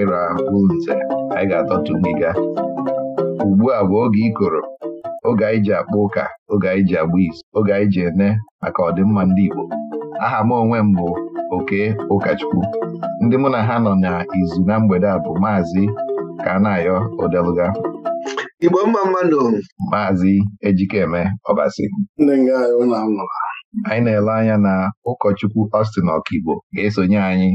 naira ahụ ise anyị ga-atọtu ngiga ugbu a bụ oge ikoro oge anyị ji akpọ ụka oge anyị ji agba izu oge anyị ji ene maka ọdịmma ndị Igbo aha m onwe m bụ oke ụkọchukwu ndị mụ na ha nọ n'izu na mgbede a bụ maazị Kanayo Odeluga Igbo mma mmadụ maazị Ejikeme Ọbasi anyị na-ele anya na ụkọchukwu Austin Ọkigbo ga-esonye anyị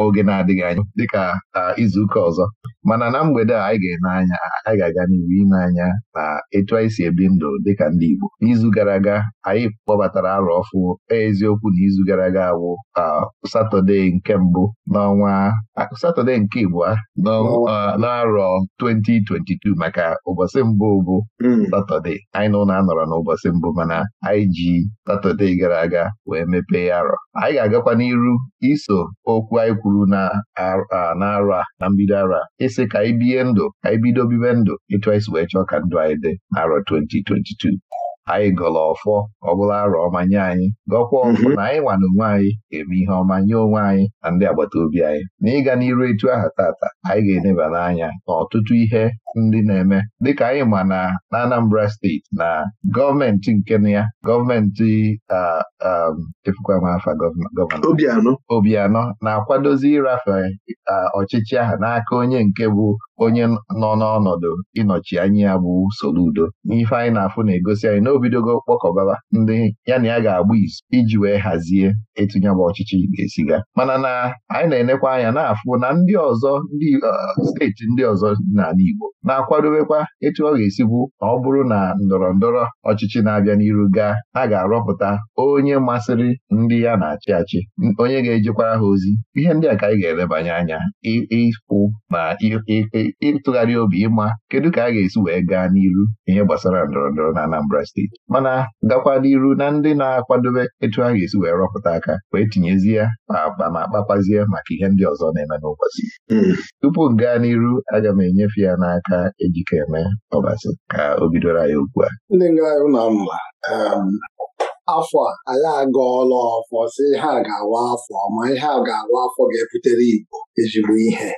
oge na-adịghị anya dịka ah, izuụka ọzọ mana na mgbede a anyị ga-eme anya anyị ga-aga n'ihu ime anya na etu anyị si ebi ndụ dịka ndị Igbo n'izu gara aga anyị kpọbatara arọ ọfụ eziokwu na izu gara aga bụ Satọde nke mbụ n'ọnwa Satọde nke Igbo n'arọ 2022 maka ụbọchị mbụ bụ hmm. Satọde anyị na ụlọ anọrọ n'ụbọchị mbụ mana anyị ji Satọde gara aga wee mepee arọ anyị ga-agakwa n'iru iso okwu anyị kwuru na arọ a na mbido arọ a ịsị ka anyị bie ndụ ka anyị bido bibe ndụ ịtụ anyị wee chọọ ka ndụ anyị dị n'arọ 2022 anyị gọrọ ọfọ ọ bụla arọ ọma nye anyị gọkwa mhm. ọfọ na anyị nwa onwe anyị eme ihe ọma nye onwe anyị na ndị agbata obi anyị na ịga n'iru etu aha tata anyị ga-eneba n'anya n'ọtụtụ ihe ndị na-eme dịka anyị ma na Anambra steeti na gọọmenti nke na ya gọọmenti m afa Obianọ na-akwadozi ịrafe ọchịchị ahụ n'aka onye nke bụ onye nọ n'ọnọdụ ịnọchi anya ya bụ Soludo n'ife anyị na-afụ na-egosi anyị na obidogo kpọkọbaba ndị ya na ya ga-agba izu iji wee hazie etinye bụ ọchịchị ga-esi ga mana na anyị na-enekwa anya na-afụ na ndị ọzọ ndị steeti ndị ọzọ dị n'ala Igbo na-akwadobekwa etu ọ ga-esikwu ma ọ bụrụ na ndọrọ ndọrọ ọchịchị na-abịa n'iru gaa a ga-arọpụta onye masịrị ndị ya na-achị achị onye ga-ejekwara ha ozi ihe ndị a ka anyị ga-elebanye anya ịkwụ na ịtụgharị obi ịma kedu ka a ga-esi wee gaa n'iru ihe gbasara ndọrọ ndọrọ na Anambra steeti mana gakwa n'iru na ndị na-akwadobe etu a ga-esi wee rọpụta aka wee tinyezie ya ma akpa ma kpakwazie maka ihe ndị ọzọ na-eme n'ụbọchị hmm. tupu m gaa n'iru aga m enyefe ya n'aka aka ejikeme ọbasi ka o bidoro anyị ugbu a ndị ngara na mma um, afọ a anyị agọọla ọfọ si ha ga-awa afọ ma ihe a ga-awa afọ ga-ebutere Igbo ezigbo ihe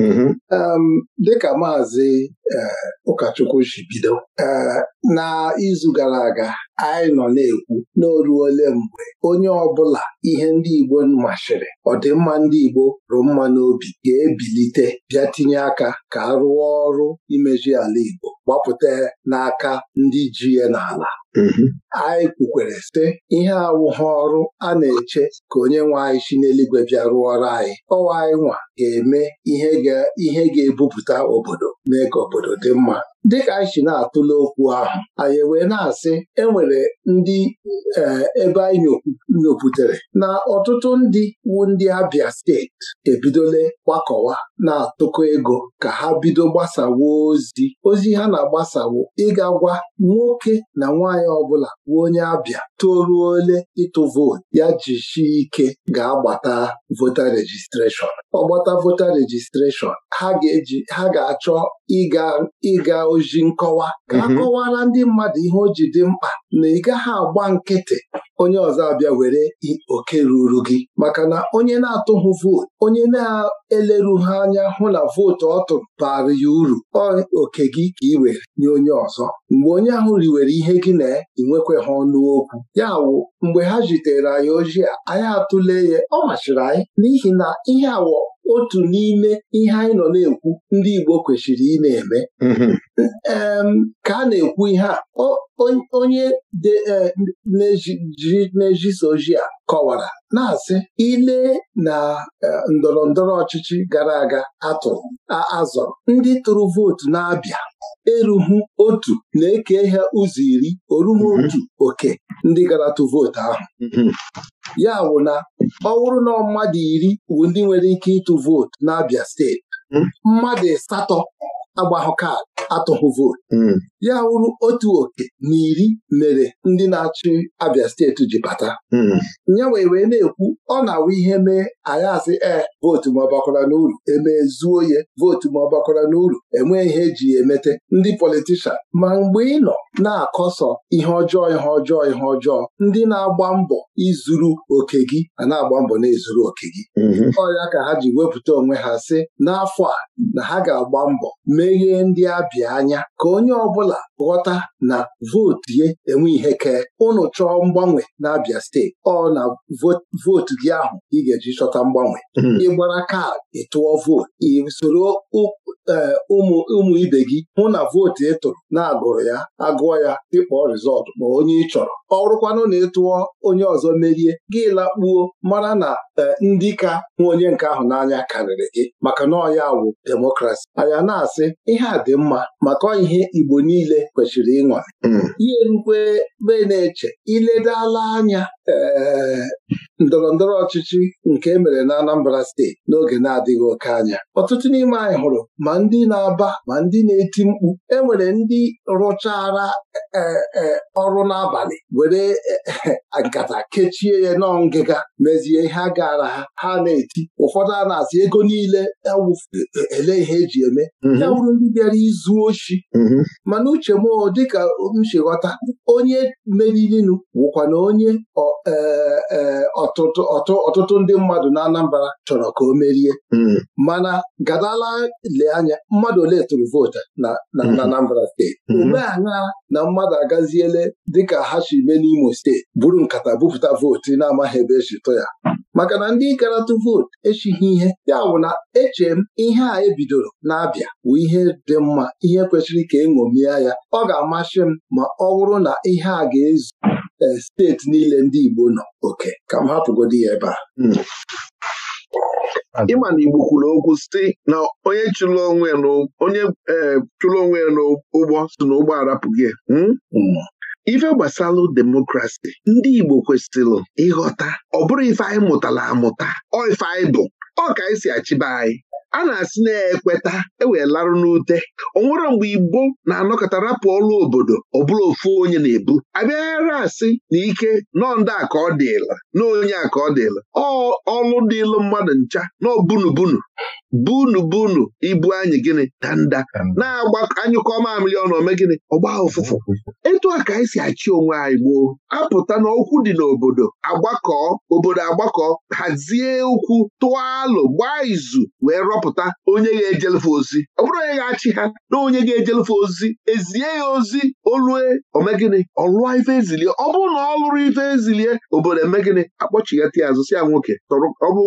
mm-hmm. um, dịka maazị eh, ụkọchukwu ji bido eh, na izu gara aga anyị nọ na-ekwu n'oruole mgbe onye ọbụla ihe ndị Igbo mashịrị ọdịmma ndị Igbo rụ mma n'obi ga-ebilite bịa tinye aka ka a rụọ ọrụ imeju ala Igbo gbapụta n'aka ndị ji ya n'ala mhm. anyị kwukwere site ihe awụghị ọrụ a na-eche ka onye nwe anyị si n'eluigwe bịa rụọ ọrụ anyị ọwa anyị nwa ga-eme ihe ga-ebupụta obodo mee ka obodo dị mma dịka anyị si na-atụle okwu ahụ anyị wee na-asị enwere ndị eh, ebe anyị nyoputere na ọtụtụ ndị wu ndị Abịa steeti ebidole gbakọwa na-atụkọ ego ka ha bido gbasawo ozi ozi ha na-agbasawo ịga gwa nwoke na nwaanyị ọbụla bụ onye Abịa toruole ole ịtụ vootu ya jishi ike ga-agbata vota rejistreshọn ọgbata gbata vota rejistreshọn ha ga-achọ ịga oji nkọwa ka a mhm. kọwara ndị mmadụ ihe o ji dị mkpa na ị gaghị agba nkịtị onye ọzọ abịa were oke ruru gị maka na onye na-atụghị vootu onye na-eleru ha anya hụ na vootu ọ tụrụ bara ya uru oke gị ka ị were nye onye ọzọ mgbe onye ahụ riwere ihe gị na ịnwekwe ha ọnụ okwu ya wụ mgbe ha jitere anyị ojii anyị atụle ya ọ machiri anyị n'ihi na ihe awọ otu n'ime ihe anyị nọ na-ekwu ndị Igbo kwesịrị ị na-eme mhm. ka a na-ekwu ihe a onye e, na-ejisa ojii a kọwara na-asị ile na e, ndọrọ ndọrọ ọchịchị gara aga atụrụ azọrọ ndị tụrụ vootu na-abịa erughu otu na-eke ha ụzọ iri oruhu otu mhm. oke ndị gara tụ vootu ahụ mhm. ya ọ bụrụ na mmadụ iri bụ ndị nwere ike ịtụ vootu n'Abia steeti hmm. mmadụ asatọ agbaghọ kaadị atụghị vootu hmm. ya wụrụ otu oke na iri mere ndị na-achị Abia steeti ji bata hmm. ya wee wee na-ekwu ọ na-awụ ihe mee anyị asị ee vootu ma ọ bakwara n'uru emezuo ya vootu ma ọ bakwara n'uru enwee ihe eji ya emete ndị politishan ma mgbe ị nọ na-akọsọ ihe ọjọọ ihe ọjọọ ihe ọjọọ ndị na-agba mbọ izuru oke gị a na-agba mbọ na-ezuru oke gị mhm. ọrịa ka ha ji wepụta onwe ha sị n'afọ a na ha ga-agba mbọ meghee ndị abịa anya ka onye ọ bụla ghọta na vootu ya enwe ihe kee ụnụ chọọ mgbanwe na steeti ọ na vootu gị ahụ ị ga-eji chọta ịkpọta mgbanwe mhm. ịgbara kaadị ịtụọ vootu ị soro e, ụmụ ụmụ ibe gị hụ na vootu ị tụrụ na-agụrụ ya agụọ ya ịkpọ rizọtụ ma onye ị chọrọ ọrụkwanụ na ịtụọ onye ọzọ merie gị lakpuo mara na e, ndị ka hụ onye nke ahụ n'anya karịrị gị maka na ọya wụ demokrasi anya na-asị ihe a dị mma maka ihe Igbo niile kwesịrị ịnwa. Mm. ihe rukwe be na-eche iledala anya ndọrọ ndọrọ ọchịchị nke e mere na Anambra steeti n'oge na-adịghị oke anya ọtụtụ n'ime anyị hụrụ ma ndị na-aba ma ndị na-eti mkpu enwere ndị rụchara e, e, ọrụ n'abalị were e, nkata kechie ya nọ ngịga mezie ihe gara ha ha na-eti ụfọdụ a na-asị ego niile ele ihe eji eme mm-hmm. ya wụrụ ndị bịara izu ochi mm-hmm. mana uche m dịka m ghọta onye meriri wụkwa na onye ọ Eh, eh, ọtụtụ ndị mmadụ na Anambra chọrọ ka o merie hmm. mana gadala le anya mmadụ ole tụrụ vootu na hmm. Anambra steeti ome hmm. anya na mmadụ agaziele dịka ha si mee n'Imo steeti buru nkata bupụta vootu na-amaghị ebe esi tụ ya maka na ndị karatụ vootu echighị ihe ya bụ na eche m ihe a ebidoro na-abịa bụ ihe dị mma ihe kwesịrị ka eṅomie ya ọ ga-amasị m ma ọ bụrụ na ihe a ga-ezu Eh, steeti niile ndị Igbo nọ oke ka m hapụgodi ya ebe a hmm. ịma na Igbo kwuru okwu si na onye chụrụ eh, onwe ya n'ụgbọ si na ụgbọ arapụghị hmm? hmm. ife gbasalụ demokrasi ndị Igbo kwesịrị ịghọta ọ bụrụ ife anyị mụtara amụta ọ ife anyị bụ ọ ka anyị si achịba anyị a na-asị na-ekweta ewee larụ n'ute nwere mgbe igbo na-anọkọta rapụ ọrụ obodo ọ bụla ofu onye na-ebu abịaghara asị na ike nọndị a ka ọ dịla na onye a ka ọ dịla ọlụ dịlụ mmadụ ncha na bunu bunu ibu anyị gịnị danda na-agba anyụkọ mamịrị ọnụ ome gịnị ọgba ụfụfụ etu a ka anyị si achị onwe anyị gboo apụta n'okwu dị n'obodo agbakọ obodo agbakọ hazie ukwu tụọ alụ gbaa izu wee rọpụta onye ga-ejelefe ozi ọ bụrụ onye ga-achị ha na onye ga-ejelefe ozi ezie ya ozi olue omegịnị ọlụọ ife ezilie ọ bụrụ na ọ lụrụ ife ezilie obodo gịnị, akpọchighata ya azụ si ya nwoke ọ bụ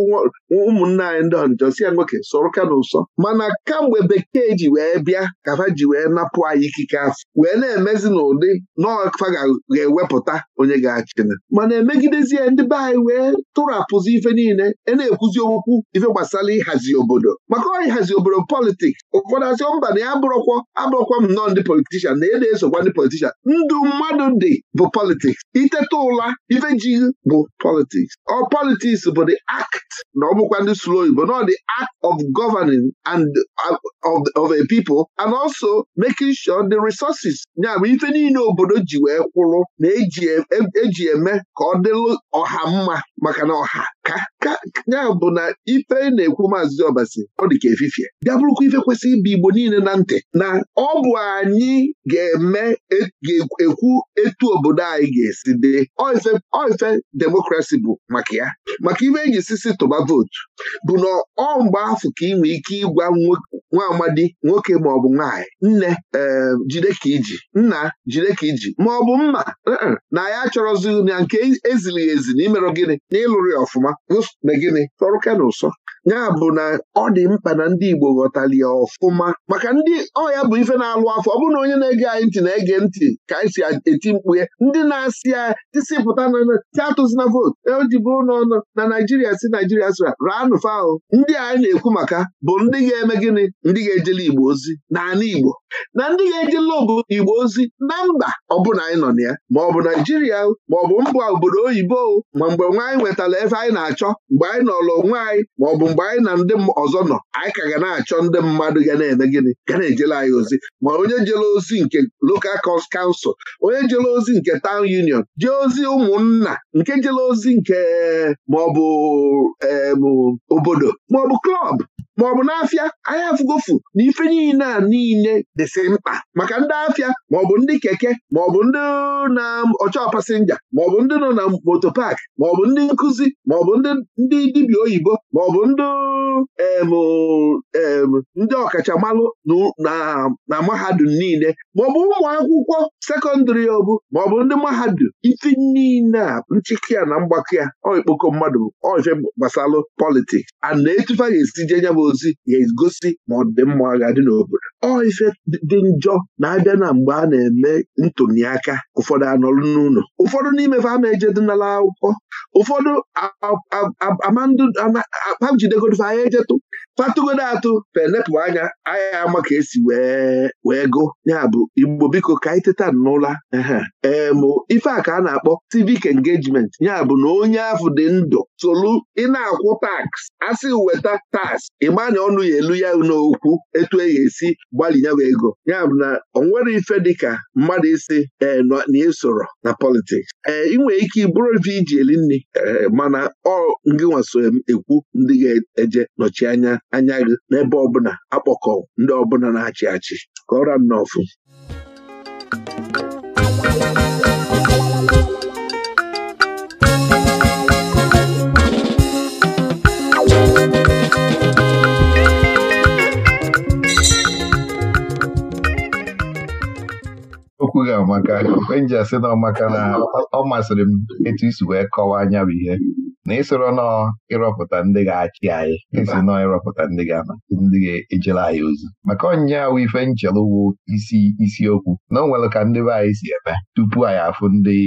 ụmụnna anyị ndị ọnjọ si ya nwoke soro ka n'ụsọ mana kamgbe bekee ji wee bịa ka ji wee napụ anyị ikike afọ wee na-emezi n'ụdị n'ọfa ga-ewepụta onye ga-achịna mana emegidezie ndị be anyị wee tụrapụzi ife niile e na-ekwuzi okwu ife gbasara ịhazi obodo maka ọ ịhazi obodo politiks ụfọdụ asị mba na ya abụrọkwọ abụrọkwa m ndị politishan na ị na-esokwa ndị politishan ndụ mmadụ dị bụ politiks iteta ụla ife ji bụ politiks ọ politiks bụ the akt na ọ bụkwa ndị slo igbo na dị act of of governing and uh, of, of a people and also making sure the resources ya bụ ife niile obodo ji wee kwụrụ na eji e, e, e eme ka ọ dịlụ ọha mma maka na ọha ka ya bụ na ife na-ekwu maazị ọbasi ọ dị ka efifie bịa bụrụkwa ife kwesịrị ịbụ igbo niile na ntị na ọ bụ anyị ga-eme e, ga-ekwu etu obodo anyị ga-esi dị ọ demokrasi bụ maka ya maka ife eji sisi tụba vootu bụ na ọ mgbe afọ ka ị ike ịgwa nwa amadi nwoke maọbụ nwaanyị nne eh, jide ka iji nna jide ka iji maọbụ mma eh, eh, na ya chọrọzi na nke e, ezilighị ezi na imerụ gịnị na ịlụrụ ya ọfụma megịnị gịnị tọrụ ụsọ ya bụ na ọ dị mkpa na ndị Igbo ghọtali ya ọfụma maka ndị ọya bụ ife na-alụ afọ ọ bụrụ na onye na-ege anyị ntị na-ege ntị ka anyị si eti mkpu ya ndị na-asị ya tisipụta ti na votu eji bụrụ n'ọnụ na Naijiria si Naijiria sịra raanụ faụ ndị anyị na-ekwu maka bụ ndị ga-eme gịnị ndị ga-ejele Igbo ozi na Igbo na ndị ga-ejele ogo Igbo ozi na mba ọbụna anyị nọ na ya ma ọ bụ Naijiria ma ọ bụ mba obodo oyibo ma mgbe nwaanyị nwetara ebe anyị na-achọ mgbe anyị nọlụ onwe anyị ma ọ bụ mgbe anyị na ndị ọzọ nọ anyị ka ga na-achọ ndị mmadụ ga na-eme gịnị ga na-ejela anyị ozi ma onye jere ozi nke lokal kansụl onye jele ozi nke taụn union jee ozi ụmụnna nke jele ozi nke maọbụ obodo maọbụ klọb maọbụ n'afịa anyị afụgofu na ife niile a niile dịsị mkpa maka ndị afịa maọbụ ndị keke maọbụ ndị na ọchọ pasenja maọbụ ndị nọ na moto paaki maọbụ ndị nkụzi maọbụ ndị dibịa oyibo maọbụ ndị ndị ọkachamalụ na mahadum niile maọbụ ụmụ akwụkwọ sekọndịrị ọbụ maọbụ ndị mahadum ife niile a nchịkị ya na mgbakọ ya ikpokọ mmadụ ọje gbasalụ politiks a na-etufa ga-esi jee ozi ga-egosi ma ọ dị mma ga-adị n'obodo ọ ife dị njọ na-abịa na mgbe a na-eme ntụliaka ụfọdụ anọlụ n'ụlọ ụfọdụ n'ime fa ama ejedinala akwụkwọ ụfọdụ jidegodife anya ejetụ fatụgodo atụ felepụ anya anya ama ka esi wee wee gụ ya bụ igbo biko ka anyị teta n'ụla ee mụ ife a ka a na-akpọ civic engagement ya bụ na onye afụ dị ndụ tolu ị na-akwụ tax asị weta tax ịmanya ọnụ ya elu ya n'okwu etu e esi gbalị ya ego ya bụ na ọ nwere ife dịka mmadụ isi ee na esoro na politiks ee ị nwere ike bụrụ ife iji eli nri e, mana ọ ngịnwa so ekwu ndị ga eje nọchi anya anya gị n'ebe ọbụla akpọkọ ndị ọbụla na-achị achị kọọrọ m n'ọfụ okwughị amaka enji asị na ọmaka na ọ masịrị m etu isi wee kọwaa anya bụ ihe na ịsoro nọ ịrọpụta ndị ga-achị anyị esi nọ ịrọpụta ndị ndị ga-ejere anyị ozi maka onye awụ ife nchelu wụ isi isiokwu na o nwere ka ndị be anyị si eme tupu anyị afụ ndị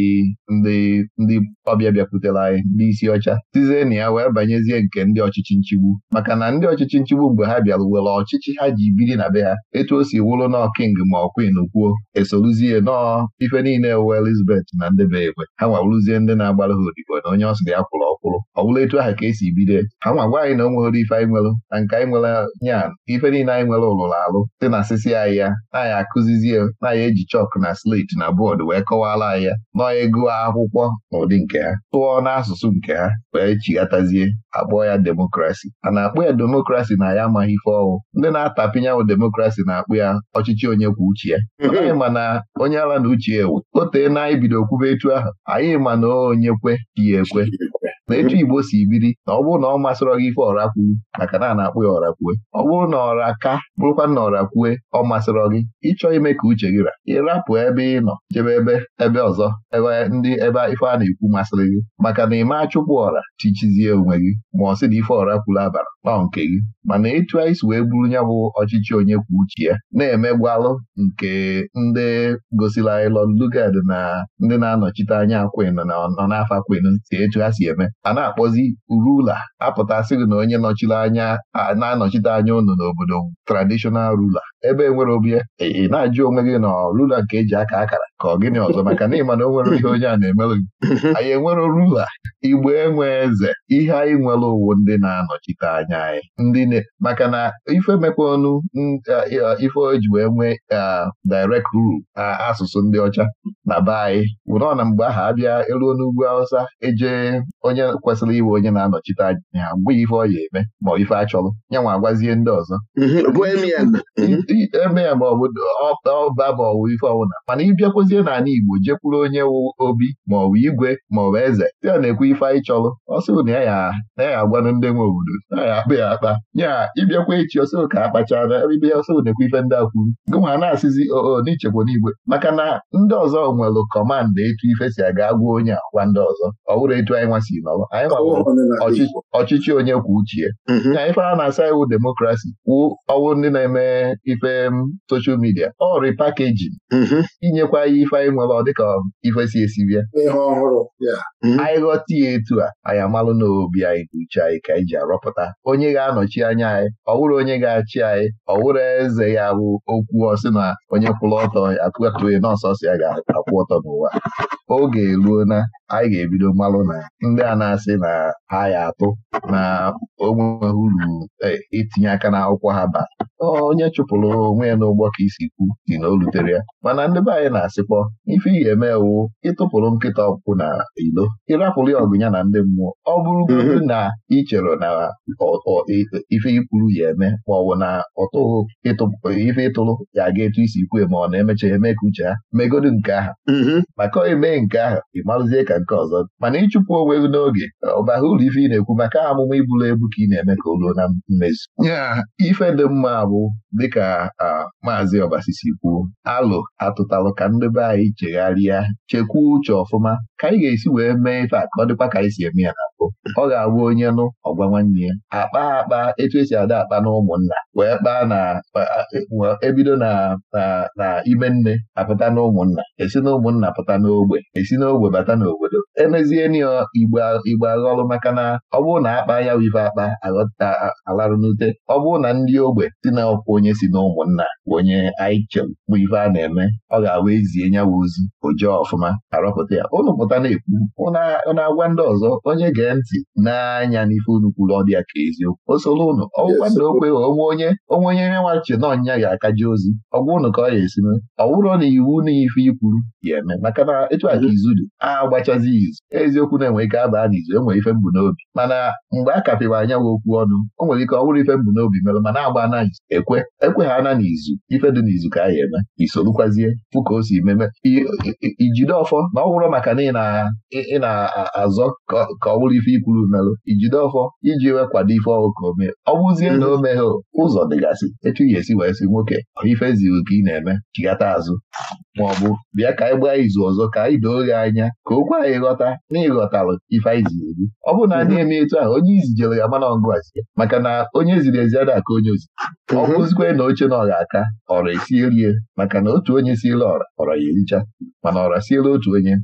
ndị ndị ọbịa bịakwutere anyị ndị isi ọcha tizie na ya wee banyezie nke ndị ọchịchị nchigbu maka na ndị ọchịchị nchigbu mgbe ha bịara were ọchịchị ha ji biri na be ha etu o si wụrụ na king ma ọ kwin kwuo esoruzie nọọ ife niile wụ Elizabeth na ndị be egbe ha nwa ndị na-agbara ha odibo na onye ọ sịrị ya kwụrụ ọgwụ ọkwụrụ ọ etu ahụ ka esi bido ha nwa gwa anyị na o nwere ife anyị nwere na nke anyị nwere nya ife niile anyị nwere ụlụrụ alụ dị na asịsị anyị ya na-anyị akụzizie na-anyị eji chọkụ na slate na bọọdụ wee kọwara anyị ya nọọ ego akwụkwọ na ụdị nke ha tụọ n'asụsụ nke ha wee chighatazie akpọọ ya demokrasi a na akpụ ya demokrasi na ya amaghị ife ọwụ ndị na-atapinyanwụ demokrasi na-akpụ ya ọchịchị onye kwuo uche ya anyị ma na onye ala na uche ewu o tee na anyị bido kwube etu ahụ anyị ma na onye kwe ya ekwe na etu Igbo si biri na ọ bụrụ na ọ masịrọ gị ife ọra maka na a na-akpụ ya ọra ọ bụrụ na ọra ka bụrụkwa na ọra kwue ọ masịrọ gị ịchọ ime ka uche gị ra ịrapụ ebe ị nọ jebe ebe ebe ọzọ ebe ndị ebe ife a na-ekwu masịrị gị maka na ịma achụpụ ọra chichizie onwe gị ma ọ sị na ife ọra kwuru abara na nke gị mana etu anyị si wee buru nya bụ ọchịchị onye kwuo uche ya na-emegwalụ nke ndị gosila anyị lugad na ndị na-anọchite anya Queen nọ n'afọ Queen si etu ha si eme a na-akpọzi rula apụta sịrị na onye nọchiri anya na-anọchite anya unu n'obodo traditional rula ebe enwere obi ya e, ị na-ajụ onwe gị na rula nke eji aka akara ka ọ gịnị ọzọ maka na ịma na o nwere ihe onye a na-emelụ gị anyị enwere rula igbe enwe eze ihe anyị nwere owu ndị na-anọchite anya anyị ndị maka na ife mekwa ọnụ ife eji wee nwee direct rule asụsụ ndị ọcha na be anyị wụrọ na mgbe ahụ abịa elu n'ugwu awụsa eje onye kwesịrị iwe onye na-anọchite anya ha mgbe ife ọ ya eme ma ife achọrọ ya nwa agwazie ndị ọzọ eme ya ma ọ bụ ọba ma ọ bụ ife ọbụla mana ịbịakwazie n'ala Igbo jekwuru onye obi ma ọ igwe ma ọ bụ eze ya na-ekwu ife anyị chọrọ ọsọ na ya ya agwanụ ndị nwe obodo na ya akpa ya akpa nya ịbịakwa echi ọsọ ka akpachaa na ebe ya ọsọ na-ekwu ife ndị akwuru gụnwa na-asịzi oo n'ichekwa igwe maka na ndị ọzọ nwere kọmanda etu ife si aga agwa onye agwa ndị ọzọ ọ bụrụ etu anyị nwa si nọrọ anyị ọchịchị onye kwuo uchie ya ife mhm. a na-asa iwu demokrasi kwuo ọwụ ndị na-eme ife ife um, soshal midia ọ rịpakejin mm-hmm. inyekwa ya ife anyị nwere ọ dịka ife si esi bịa mm-hmm. anyị ghọta ya etu a anyị amalụ n'obi anyị na uche anyị ka anyị ji arọpụta onye ga-anọchi anya anyị ọ wụrụ onye ga-achị anyị ọ wụrụ eze ya bụ okwu ọsị na onye kwụrụ ọtọ akụatụghị nọọsọsọ ya ga-akwụ ọtọ n'ụwa oge eruo na anyị ga-ebido malụ na ndị a na-asị na ha ya atụ na onwe uru e, itinye aka n'akwụkwọ ha ba onye chụpụrụ onwe ya n'ụgbọ ka isi kwu dị na o rutere ya mana ndị be anyị na-asịkpọ ife ị ga-eme ewu ịtụpụrụ nkịta ọkpụkpụ na ilo ịrapụrụ ya ọgụnya na ndị mmụọ ọ bụrụ mhm. na ichere chere na e, ife ikwuru ya eme ma ọ bụ na ọtụghụ ife ịtụrụ ya aga etu isi ikwu ma ọ na-emecha eme ka uche ha megodu nke aha mhm. maka ọ emee nke aha ị ka nke ọzọ mana ịchụpụ onwe gị n'oge ọbaghị ụlọ ife ị na-ekwu maka amụma iburu ebu ka ị na-eme ka o ruo na mmezu ife dị mma bụ dịka maazị Obasisi kwuo alụ atụtalụ ka ndị be anyị chegharịa chekwa uche ọfụma ka anyị ga-esi wee mee ife a ka ọ dịkwa ka anyị si eme ya na ọ ga-abụ onye nụ ọgwa nwanne ya akpa akpa etu esi ada akpa na ụmụnna wee kpaa na ebido e na na ime nne apụta na ụmụnna esi na ụmụnna pụta n'ogbe esi n'ogbe bata n'obodo emezie n'igbo igbo aghọlụ maka na ọ bụrụ na akpa ya ife akpa aghọta alarụ n'ute ọ bụrụ na ndị ogbe si na ọkwụ onye si na ụmụnna onye aiche bụ ife a na-eme ọ ga agwa ezie nyawa ozi ojee ọfụma arọpụta ya ụnụ pụta na-ekwu ụnụ agwa ndị ọzọ onye ga ntị n'anya n'ife unu kwuru ọ dị ya ka eziokwu o soro ụnụ, ọgwụkwa onwe onye onwe onye nye nwachi na ọnya ga-akaji ozi ọ gwụ ka ọ ya esi mee ọ bụrụ na iwu na ife ikwuru ya eme maka na etu a ka izu dị agbachazi izu eziokwu na-enwe ike abaa n'izu enwere ife mbụ n'obi mana mgbe a anya anyanwụ okwu ọnụ o nwere ike ọ bụrụ ife mbụ n'obi mere mana agba na izu ekwe ekwe ha na n'izu ife dị n'izu ka a ya eme isorukwazie fụ ka o si meme ijide ọfọ na ọ bụrụ maka na ị na-azọ ka ọ bụrụ ife ikwuru melụ ijide ọfọ iji wee kwado ife ọhụụ ka omee. ọ bụzie na o meghe ụzọ dịgasị etu ihe esi wee sị nwoke ife ziri ka ị na-eme chigata azụ ma ọ bụ bịa ka anyị gbaa izu ọzọ ka anyị doo gị anya ka okwu anyị ghọta na ịghọtalụ ife anyị ziri gị ọ bụ na a na-eme etu ahụ onye izijere ya mana ọngụazie maka na onye ziri ezi ada ka onye ozi ọ mhm. bụzikwe na oche na ọra aka ọra esie rie maka na otu onye siela ọra ọra ya ericha mana ọra siela otu onye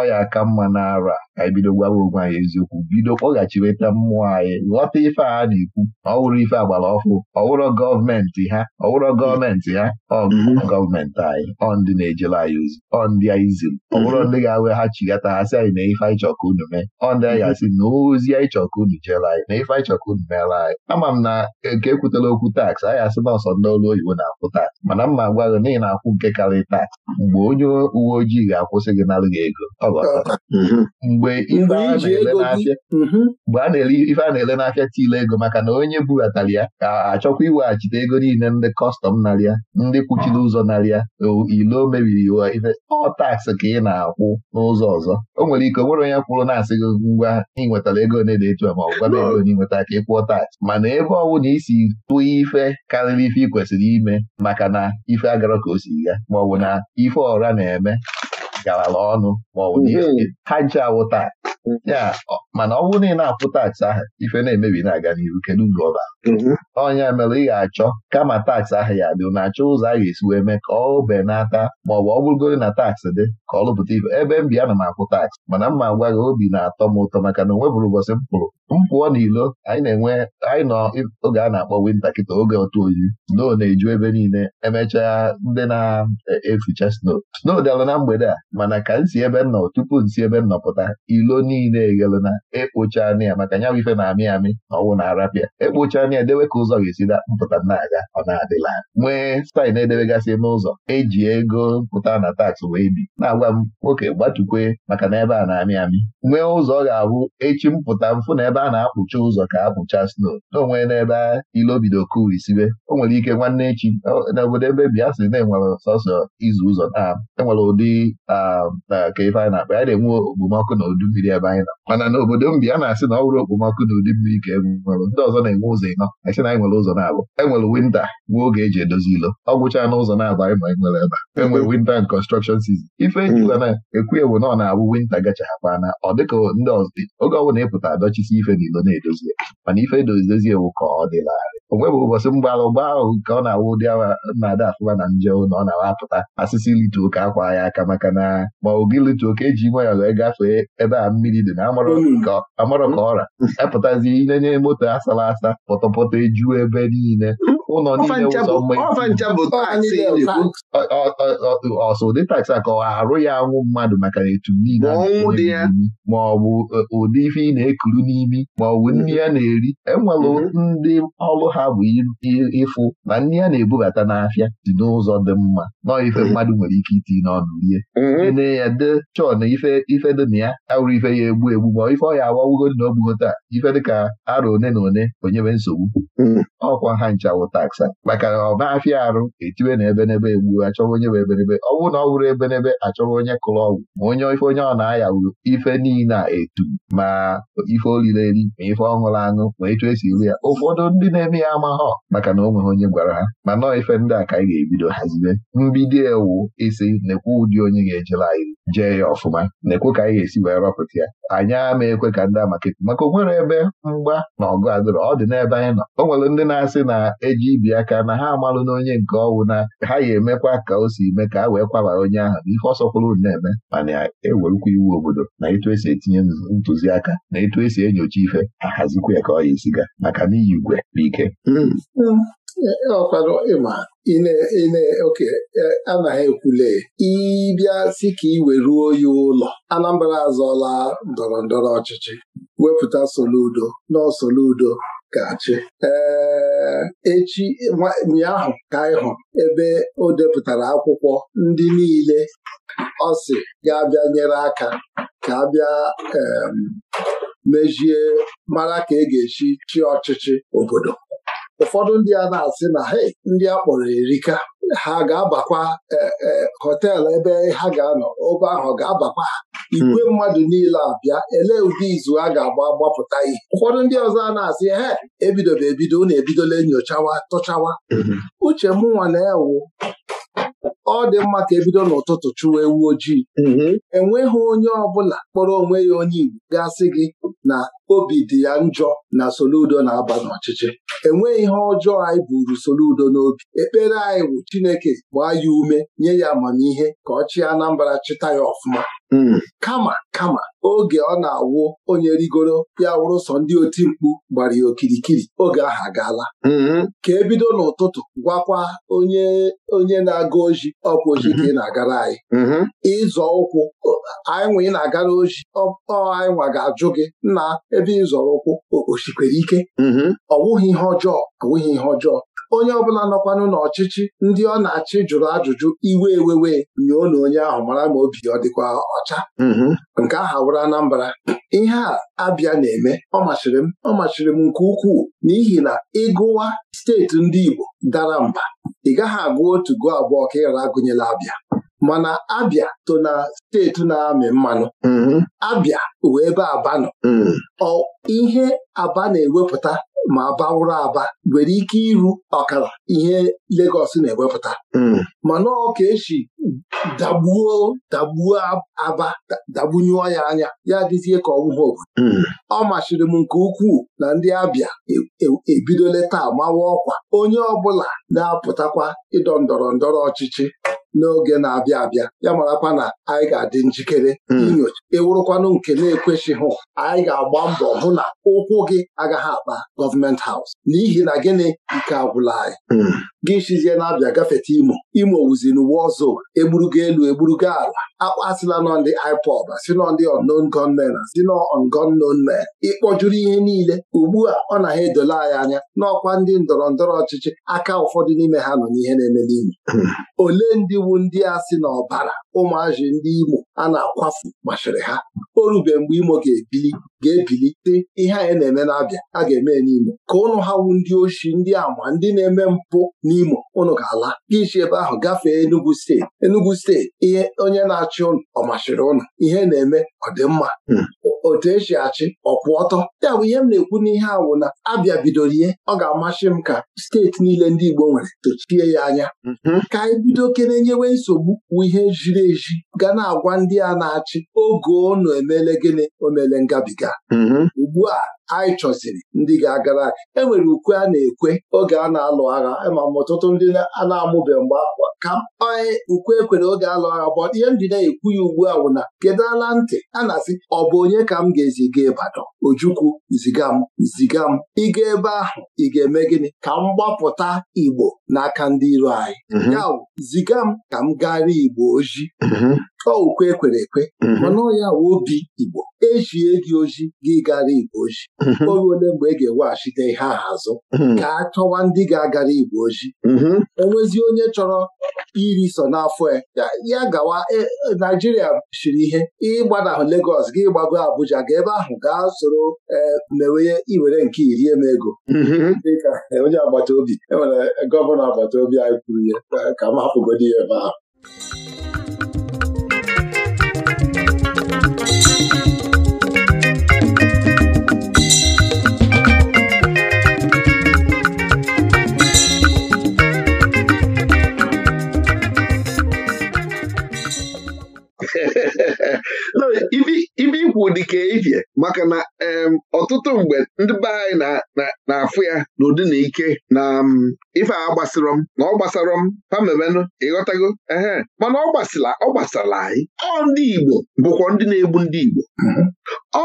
ọya aka mma na ara ka anyị bido wụkwa ya eziokwu bido kpọghachiweta mmụọ anyị ghọta ife a na-ekwu ọ wụrụ ife agbara ọfụ ọwụrụ gọọmenti ha ọwụrụ gọọmenti ha ọ mhm. gọọmenti anyị ọ ndị na-ejere anyị ozi ọ ndị anyị ziri ọwụrụ mhm. ndị ga-aweghachigata ha sị anyị na ife anyị chọka unu mee ọ ndị anyị asị na ozi anyị chọka unu jere anyị na ife anyị chọka unu meere anyị ama m na nke ekwutela okwu taks anyị asị na ọsọ ndị ọrụ oyibo na-akwụ taks mana mma agwaghị na ị na-akwụ nke karịrị taks mgbe onye uwe ojii ga-akwụsị gị narị gị ego ọ mhm. mgbe ife a na mgbe a na-ele ife a na-ele n'afịa tile ego maka na onye bubatara ya ka achọkwa iweghachite ego niile ndị kọstọm narịa ndị kwuchiri ụzọ narịa ile o mebiri iwe ife ọ taksị ka ị na-akwụ n'ụzọ ọzọ o nwere ike nwere onye kwụrụ na-asị gị ngwa ị nwetara ego na-ede etu ma ọ gwara ego na ịnweta ka ịkwụọ tax. mana ebe ọ na isi tụọ ife karịrị ife ị kwesịrị ime maka na ife agara ka o si ya maọbụ na ife ọra na-eme garala ọnụ maọbụ mhm. ha nche awụta ndị a mana ọ bụrụ na ị na apụ taksị ahụ ife na-emebi na-aga n'ihu kedu mgbe ọ bara ọnya mm-hmm. mere ị ga-achọ kama taksị ahụ ya dị na-achọ ụzọ a ga-esi wee mee ka ọ benata ma ọ bụ ọ bụrụgoro na taksị dị ka ọ lụpụta ife ebe m bi ana m akwụ taksị mana ma gwa gị obi na-atọ m ụtọ maka na o nwebụrụ ụbọchị m pụrụ mpụọ n'ilo anyị na-enwe anyị nọ oge a na-akpọ winta kịta oge otu oyi snow na-eju ebe niile emechaa ndị na-eficha snow snow dịalụ na mgbede a mana ka si ebe m nọ tupu si ebe m nọpụta ilo niile eghelu na ekpocha ya maka nya ife na-amị amị na ọwụ na arapịa ekpocha na ya dewe ka ụzọ ga-esi mpụta na-aga ọ na-adịla nwee staịl na-edebegasị n'ụzọ eji ego mpụta na taks wee bi na-agwa m nwoke gbatukwe maka na ebe a na-amị amị nwee ụzọ ọ ga-abụ echi mpụta mfụ na ebe ebe a na-akpụcha ụzọ ka apụcha sno n'onwe n'ebe ilobido kuwa isibe o nwere ike nwanne echi n'obodo ebe bịa sị na-enwere sọsọ izu ụzọ na enwere ụdị ka ife anyị na-akpa ya na-enwe okpomọkụ na udu mmiri ebe anyị nọ mana n'obodo mbi a na-asị na ọ bụrụ okpomọkụ na udu mmiri ka enwere ndị ọzọ na-enwe ụzọ ịnọ asị na anyị nwere ụzọ na-abụ enwere winta nwee oge eji edozi ilo ọ gwụcha ụzọ na-abụ anyị ma anyị nwere ebe enwere winta and construction sizin ife ejiụla hmm. na ekwu ewu na ọ na-abụ winta gacha hapana ọ dịka ndị ọzọ oge ọbụla ịpụta adọchisi ife ife n'ilo na-edozie mana ife edozidozie ewu ka ọ dịlarị o nweghị ụbọchị mgbalụ ụgba ahụ nke ọ na-awụ ụdị na-ada afụma na nje na ọ na-awapụta asịsị litu ụka akwa ya aka maka na ma ogi litu ụka eji nwe ya wee gafee ebe a mmiri dị na amarọ ka mm. ọra epụtazi inenye moto asala asa pọtọpọtọ ejuo ebe niile ụlọ niile ụzọ ọsọ taksi a ka ọ arụ ya anwụ mmadụ maka na etu ma ọ e, ụdị ife ị na-ekuru n'imi ma bụ mm-hmm. nri ya na-eri enwere mm-hmm. ndị ọrụ ha bụ ịfụ na nri ya na-ebubata n'afịa dị n'ụzọ dị mma nọ ife mm-hmm. mmadụ nwere ike iti n'ọnụ rie ene ya de chọọ na ife ife dị na ya awụrụ ife ya egbu egbu ma ife ọ ya awawugo dị na taa ife dị ka arọ one na one onyebe nsogbu ọkwa ha nchawụta taksa maka na ọ e na arụ etiwe na nebe egbuo achọwa onye bụ ebenebe ọ bụrụ na ọ bụrụ ebenebe achọwa onye kụrụ ọgwụ ma onye ife onye ọ na-aya wuru ife niile na etu ma ife olile eri ma ife ọṅụrụ aṅụ ma etu esi iri ya ụfọdụ ndị na-eme ya amaghọ maka na o onye gwara ha ma nọọ ife ndị a ka anyị ga-ebido hazibe mbido ewu isi nekwe ụdị onye ga-ejela anyị jee ya ọfụma nekwe ka anyị ga-esi wee rọpụta ya anyị ama ekwe ka ndị amaketi maka o ebe mgba na ọgụ adịrọ ọ dị n'ebe anyị nọ o nwere ndị na-asị na eji ibi aka na ha amalụ na onye nke ọwụ na ha ya emekwa ka o si eme ka ha wee kwabara onye ahụ na ife ọsọkwụrụ na-eme mana ewerukwa iwu obodo na etu esi etinye ntụziaka na etu esi enyocha ife ha hazikwa ya ka ọ ya maka na iyi igwe bụ ike hmm. ọkwanụ ịma ine e, anaghị ekwule ịbịa si ka ị weruo ya ụlọ Anambra azọla ndọrọ ndọrọ ọchịchị wepụta Soludo na Soludo gachi ee echi ụnyaahụ ka anyị hụrụ ebe o depụtara akwụkwọ ndị niile ọ sị ga-abịa nyere aka ka abịa mejie mara ka e ga eshi chi ọchịchị obodo ụfọdụ ndị a na-asị na he ndị a kpọrọ erika ha ga-abakwa e, e, hotel ebe ha ga-anọ obe ahụ ga-abakwa hmm. igwe mmadụ niile abịa elee ụdị izu a ga-agba gbapụta ihe ụfọdụ ndị ọzọ a na-asị he ebidobe ebido na-ebidola nyochawa tụchawa hmm. uche mụnwa na-ewu ọ dị mma ka ebido n'ụtụtụ chụwa ewu ojii mm-hmm. enweghị onye ọbụla kpọrọ onwe ya onye Igbo gasị gị na obi dị ya njọ na Soludo na-aba n'ọchịchị enweghị ihe ọjọọ anyị buru Soludo n'obi ekpere anyị bụ Chineke gbaa ya ume nye ya amamihe ka ọ chịa anambara chịta ya ọfụma Hmm. kama kama oge ọ na-awụ onye rigoro ya wụrụ sọ ndị oti mkpu gbara ya okirikiri oge ahụ agaala hmm. ka ebido n'ụtụtụ gwakwa onye na-aga oji ọkwa oji ka ị hmm. na-agara anyị ịzọ ụkwụ anyị nwe ị na-agara oji ọ anyị nwa ga-ajụ gị na ebe ịzọrọ ụkwụ ike ọ wụghị ihe ọjọọ ọ wụghị ihe ọjọọ onye ọbụla nọkwanụ n'ọchịchị ndị ọ na-achị jụrụ ajụjụ iwe ewewe nyoo na onye ahụ mara ma obi ọ dịkwa ọcha mm-hmm. nke aha wụrụ Anambra ihe a abịa na-eme ọ machiri m ọ m nke ukwuu n'ihi na ịgụwa steeti ndị Igbo dara mba ị gaghị agụ otu gụọ abụọ ka ịghara agụnyela abịa mana abịa to na steeti na-amị mmanụ mm-hmm. abịa wee ebe aba nọ mm. ihe aba na-ewepụta ma bawụrụ aba nwere ike iru ọkara ihe legos na-ewepụta hmm. mana ọ ka esi dagbuo dagbuo aba dagbunyụọ ya anya ya dịzie ka ọwụwa obodo hmm. ọ machiri m nke ukwuu na ndị abịa ebidola e, e taa mawa ọkwa onye ọbụla na-apụtakwa ịdọ ndọrọ ndọrọ ọchịchị n'oge na-abịa abịa ya marakwa na anyị ga-adị njikere hmm. inyocha ewurụkwanụ nke na-ekwesịghị anyị ga-agba mbọ hụ na ụkwụ gị agaghị akpa gọọmenti haus n'ihi na gịnị nke agwụla anyị hmm. gị shizie na-abịa gafeta imo imo wuziri uwe ọzọ egburugo elu egburugo ala akpasịla nọndị ndị IPOB si nọ ndị unknown si na unknown men ịkpọjuru ihe niile ugbu a ọ na ha edola anyị anya n'ọkwa ndị ndọrọ ndọrọ ọchịchị aka ụfọdụ n'ime ha nọ n'ihe na-eme n'ime hmm. ole ndị iwu ndị a si na ọbara ụmụazị ndị Imo a na-akwafu machiri ha o rube mgbe Imo ga-ebili ga-ebilite ihe anyị na-eme n'abịa a ga-eme n'Imo ka ụnụ ha wu ndị oshi ndị ama ndị na-eme mpụ n'Imo ụnụ ga-ala isi ebe ahụ gafee Enugu steeti Enugu steeti ihe onye na-achị ụnụ ọ machiri ụnụ ihe na-eme ọdịmma. Hmm. otu esi achị ọkwụ ọtọ ya bụ ihe m na-ekwu n'ihe awụ na abịa bidoro ihe ọ ga-amasị m ka steeti niile ndị Igbo nwere tochie ya anya mhm. ka anyị bido kere nyewe nsogbu wụ ihe jiri eji ga na-agwa ndị a na-achị oge ọnụ emele gịnị omele ngabiga mhm. ugbu a anyị chọziri ndị ga-agara e nwere ukwe a na-ekwe oge a na-alụ agha ma ọtụtụ ndị a na-amụbe mgbe akwa ka mkpa e, ukwe ekwere oge alụ agha bụ ihe m na-ekwu ya ugbu a wụ na kedu ala ntị a na-asị ọ bụ onye ka m ga-eziga Ịbadọ Ojukwu ziga m ziga m ịga ebe ahụ ị ga-eme gịnị ka m gbapụta Igbo n'aka ndị iro anyị mhm. ya ziga m ka m gara Igbo oji mhm. ọ ukwe ekwere ekwe mhm. mana ọ obi Igbo echie gị oji gị gara igbo oji mhm. oge ole mgbe e ga-eweghachite ihe ahụ azụ mhm. ka a chọwa ndị ga-agara igbo oji mhm. nwezi onye chọrọ iri so n'afọ e, ya ya gawa e, Naijiria siri ihe ịgbanahụ Legos gị gbago Abuja ga ebe ahụ gaa soro e, mewe iwere nke iri eme ego dịka onye agbata obi enwere gọvanọ agbata obi anyị kwuru ya ka m hapụgodi ya ebe ahụ ibe ikwu dịka ifie maka na ọtụtụ mgbe ndị be anyị na-afụ ya n'ụdị na ike na ife a gbasịrọ m na ọ gbasarọ m pamebenụ ịghọtago ehe mana ọ gbasịla ọ gbasara anyị ọ ndị Igbo bụkwa ndị na-egbu ndị Igbo mhm.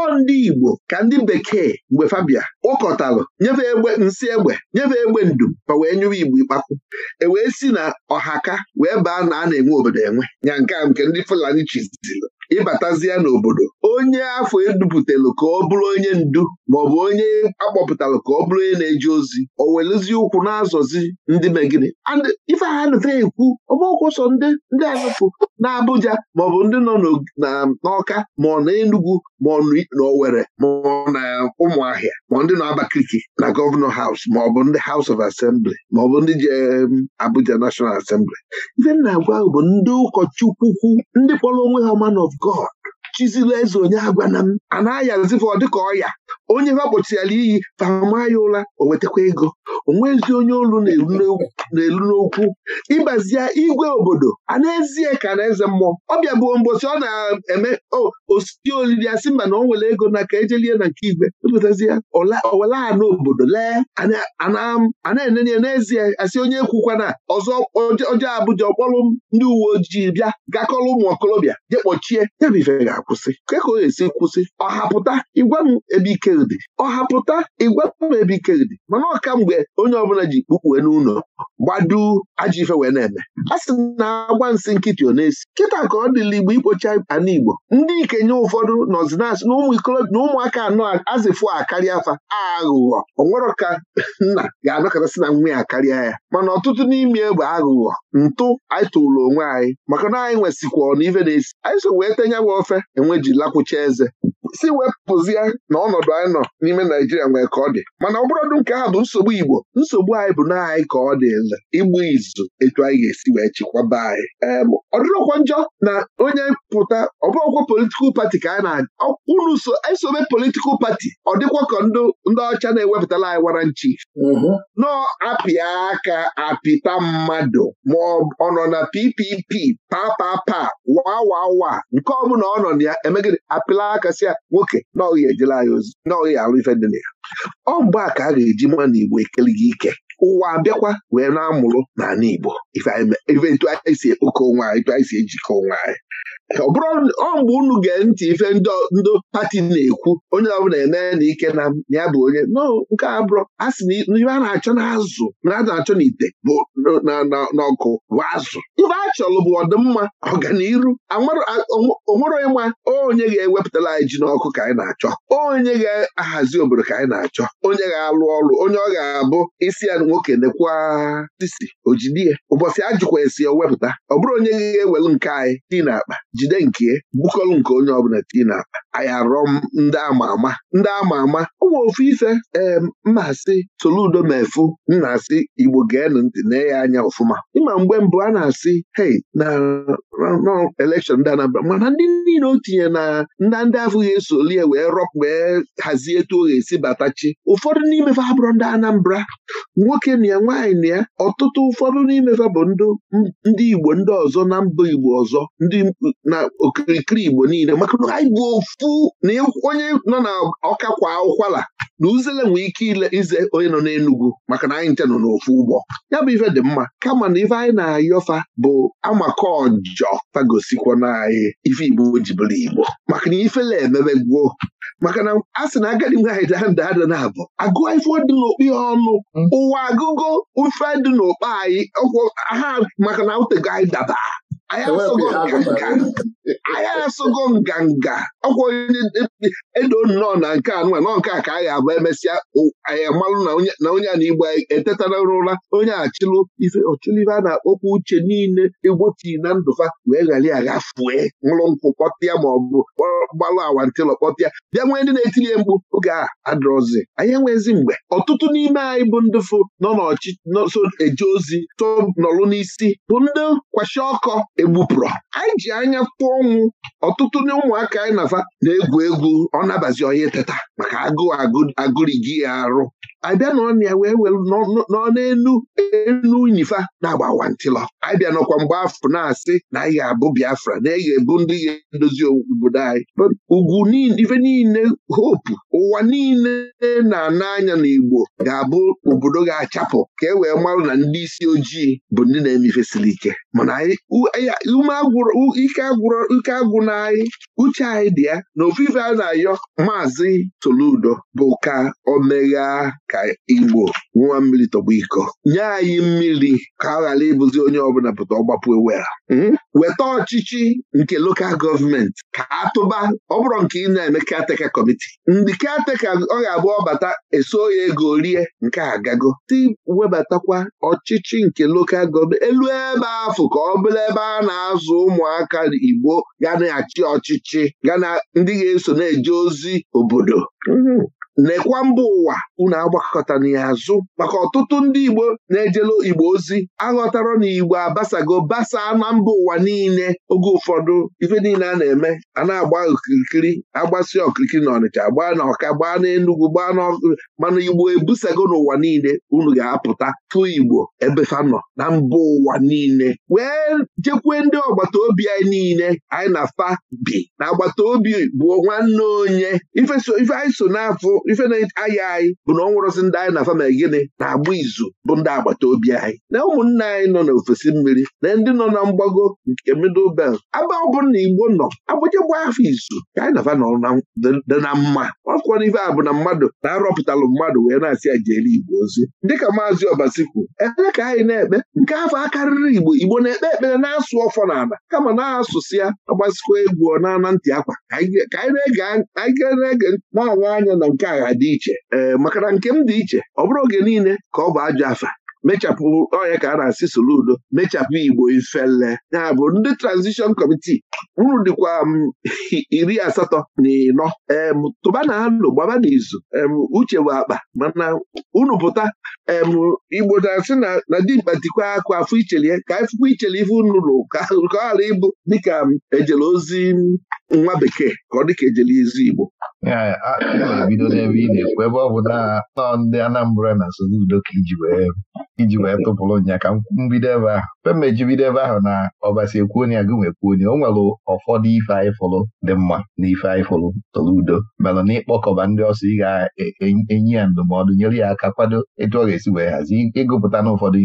ọ ndị Igbo ka ndị bekee mgbe fabia kpọkọtalụ nyefe egbe nsị egbe nyefe egbe ndụm ma wee nyụwa Igbo ịkpakwu e wee si na ọhaka wee baa na a na-enwe obodo enwe nya nke a nke ndị Fulani chizizili ịbatazie n'obodo onye afọ edupụtalụ ka ọ bụrụ onye ndu maọbụ onye akpọpụtalụ ka ọ bụrụ onye na-eji ozi o welụzi ụkwụ na-azọzi ndị megide ife ha nụta ekwu ọbụkwụ sọ ndị ndị azụpụ na Abuja maọbụ ndị nọ n'Ọka ma ọ na ma ọ na ma ọ na Ụmụahịa ma ndị nọ Abakaliki na gọvanọ haus maọbụ ndị haus of asembli maọbụ ndị ji Abuja nashọnal Assembly ife m na-agwa bụ ndị ụkọchukwu ndị kpọrọ onwe ha man God chizila eze onye agwa na m a na-ayazifa ọ dịka onye ha gbochirala iyi pama ya ụra o wetakwa ego onwezi onye olu na-elu n'okwu ịgbazie igwe obodo a n'ezie ka na-eze mmụọ ọ bịa bụ mbosi ọ na-eme osisi olili asị mba na ọ nwere ego na ka ejelie na nke igwe ya owele a n'obodo lee a na-enene n'ezie asị onye kwukwana ọzọ ọjọọ Abụja ọkpọrọ ndị uwe ojii bịa gakọrọ ụmụ okorobịa je kpọchie ya bụ ife ga-akwụsị ka e ka ọ ga-esi kwụsị ịgwa m ebe ike bekedi ọhapụta igwebekedi mana ọka mgbe onye ọbụla ji kpukpue n'ụlọ gbadu ajọ ife wee na-eme a sị na agwa nsị nkịtị ọ na-esi kịta ka ọ dịla igbo ikpocha ana igbo ndị ikenye ụfọdụ nọzinasị na ụmụ na ụmụaka anọ azịfụ akarịa afa aghụghọ onwero ka nna ga-anọkọtasị na nwa ya karịa ya mana ọtụtụ n'ime egbe aghụghọ ntụ anyị tụlụ onwe anyị maka na anyị nwesịkwa na ife na-esi anyị so wee tenye wa ofe enwe ji lakwụcha eze si wepụzie na ọnọdụ anyị nọ n'ime Naijiria nwee ka ọ dị mana ọbụrụdụ nke ahụ bụ nsogbu Igbo nsogbu anyị bụ na anyị ka ọ dị igbu izu etu anyị ga-esi wee chikwaba anyị ọ dịrọkwa njọ na onye pụta ọbụrụkwa politikal pati ka anyị na unu so politikal pati ọ dịkwa ka ndị ọcha na-ewepụtala anyị wara nchi mhm. nọ apịa aka apịta mmadụ ma ọ nọ na PPP papapa wawawa nke ọ ọ nọ na ya emegide apịla aka si ya nwoke na ọghị ejela anyị ozi na ọghị alụ ife dị na ya ọ mgbe a ka a ga-eji mma na Igbo ekele gị ike ụwa abịakwa wee na-amụrụ n'ala Igbo ife etu anyị si ekpokọ onwe anyị anyị si ejikọ onwe anyị ọ bụrụ ọ mgbe unu gee ntị ife ndị pati na-ekwu onye ọbụla eme na ike na ya bụ onye no nke a bụrụ a sị na ife a na-achọ n'azụ na a na-achọ n'ite bụ n'ọkụ bụ azụ Ibe a chọrọ bụ ọdịmma ọganiru onwere ịma onye ga-ewepụtala anyị ji n'ọkụ ka anyị na-achọ onye ga-ahazi obodo ka anyị na-achọ onye ga-alụ ọrụ onye ọ ga-abụ isi ya nwoke nekwa sisi ojidie ụbọchị ajụkwa esi wepụta ọ bụrụ onye ga-ewelu nke anyị dị n'akpa jide nke bụkọlụ nke onye ọbụla tii na akpa ndị ama ama ndị ama ama ụmụ ofu ife ee mmasị Soludo mefu nna asị Igbo geenụ ntị nee ya anya ọfụma ịma mgbe mbụ a na-asị hei na elekshọn ndị Anambra mana ndị niile o tinye na ndị ndị ga esoli ya wee rọp wee hazie etu o ga-esi batachi ụfọdụ n'imefe abụrụ ndị Anambra nwoke na ya nwaanyị na ya ọtụtụ ụfọdụ n'imefe bụ ndị Igbo ndị ọzọ na mba Igbo ọzọ ndị na okirikiri Igbo niile maka na anyị bụ ofu na onye nọ na ọkakwa kwa ụkwala na uzele nwee ike ile ize onye nọ n'Enugwu maka na anyị nche nọ n'ofu ụgbọ ya bụ ife dị mma kama na ife anyị na-ayọfa bụ amaka ọjọ fagosikwa na anyị ife Igbo jibụrụ Igbo maka na ifele emebe maka na a sị na agadi nwaanyị da nda ada na-abụ agụ ife dị n'okpi ya ọnụ ụwa agụgo ife dị n'okpe anyị ọkwụ aha maka na utego anyị daba anyị asụgo nganga ọkwa onye edo nnọọ na nke anụwa nọ nke a ka anyị abụ emesịa anyị amalụ na onye a na igbo etetara ụra onye achịlụ ife ọchịlụ ife a na-akpọkwa uche niile egbochii na ndụfa wee ghara ya gha fue nwụrụ nkwụ kpọtịa ma ọ bụ gbalụ awantịlọ kpọtịa bịa nwee ndị na-etinye mkpu oge a adrọzi anyị enwezi mgbe ọtụtụ n'ime anyị bụ ndị fụ nọ n'ọchịchị eje ozi tụ nọrụ n'isi bụ ndị kwashi ọkọ egbupụrụ anyị ji anya kpụọ ọnwụ ọtụtụ ndị ụmụaka anyị nafa na-egwu egwu ọ nabazi onye teta maka agụụ agụrigi ya arụ abịa na ya wee were nọ n'elu enu na-agba wantịlọ abịa nọkwa mgbe afọ na-asị na anyị ga-abụ Biafra na anyị ga-ebu ndị ga-edozi obodo anyị ugwu ife niile hopu ụwa niile na-ana anya na Igbo ga-abụ obodo ga-achapụ ka e wee marụ na ndị isi ojii bụ ndị na-emefesiri ike mana ike agwụ na anyị uche anyị dị ya na ofufe a na-ayọ maazị Soludo bụ ka o megha ka Igbo nwa mmiri tọgbọ iko nye anyị mmiri ka ọ ghara ịbụzi onye ọbụla pụta ọgbapụ ewera hmm? weta ọchịchị nke lokal gọọmenti ka atụba ọ bụrụ nke ị na-eme kateka kọmiti ndị kateka ọ ga-abụ ọbata eso ya ego rie nke agago ti webatakwa ọchịchị nke lokal gọọmenti elu ebe afọ ka ọ bụrụ ebe a na-azụ ụmụaka Igbo ga na-achị ọchịchị ga na ndị ga-eso na-eje ozi obodo hmm. lekwa mba ụwa unu agbakọta na ya azụ maka ọtụtụ ndị Igbo na-ejelu Igbo ozi aghọtara na Igbo abasago basaa na mba ụwa niile oge ụfọdụ ife niile a na-eme a na-agba okirikiri agbasi okirikiri na Ọnịcha gbaa na Ọka gbaa na Enugwu gbaa na mana Igbo ebusago n'ụwa niile unu ga-apụta fụ Igbo ebefa nọ na mba ụwa niile wee jekwue ndị agbata obi anyị niile anyị na fa bi na agbata obi bụ nwanne onye ife anyị so n'afọ ife na-ayị anyị bụ na ọ nwụrụzi ndị anyị na fama gịnị na-agba izu bụ ndị agbata obi anyị na ụmụnne anyị nọ n'ofesi mmiri na ndị nọ na mgbago nke middle belt aba ọ bụrụ na igbo nọ agbụjegbu afọ izu ka anyị nafa nọ dị na mma ọkwọrọ ife a bụ na mmadụ na-arọpụtalụ mmadụ wee na-asị ya jere igbo ozi dịka maazị ọbasikwu ekpere ka anyị na-ekpe nke afọ akarịrị igbo igbo na-ekpe ekpere na-asụ ọfọ n'ala kama na-asụsị ya agbasikwa egwu ọ na-ana ntị akwa ka anyị na-ege anya na nke agha dị iche ee eh, maka na nke m dị iche ọ bụrụ oge niile ka ọ bụ ajọ afa mechapụ ọnya ka a na-asị soludo mechapụ igbo ifele ya bụ ndị transition committee uru dịkwa mm, iri asatọ na ịnọ em tụba na anụ gbaba n'izu em uche bụ akpa mana unu pụta em igbo na-asị na dimkpa dịkwa akụ afọ ichelie ka afụkwa ichelie ife unu lụ ka ọ ghara ịbụ dịka mm, ejele ozi mm, nwa bekee ka ọ dị ka ejele izu Igbo na-ebido n'ebe ị na-ekwu ebe ọ bụ na ndị Anambra na Soludo ka iji wee tụpụrụ nya ka mbido ebe ahụ mgbe m mejibide ebe ahụ na ọbasi ekwuonye agụ nwekwuonye o nwere ụfọdụ ife anyị fụrụ dị mma na ife anyị fụrụ tọrọ udo mere na ịkpọkọba ndị ọsọ ị ga enyi ya ndụmọdụ nyere ya aka kwado etu ọ ga-esi wee hazi ịgụpụta na ụfọdụ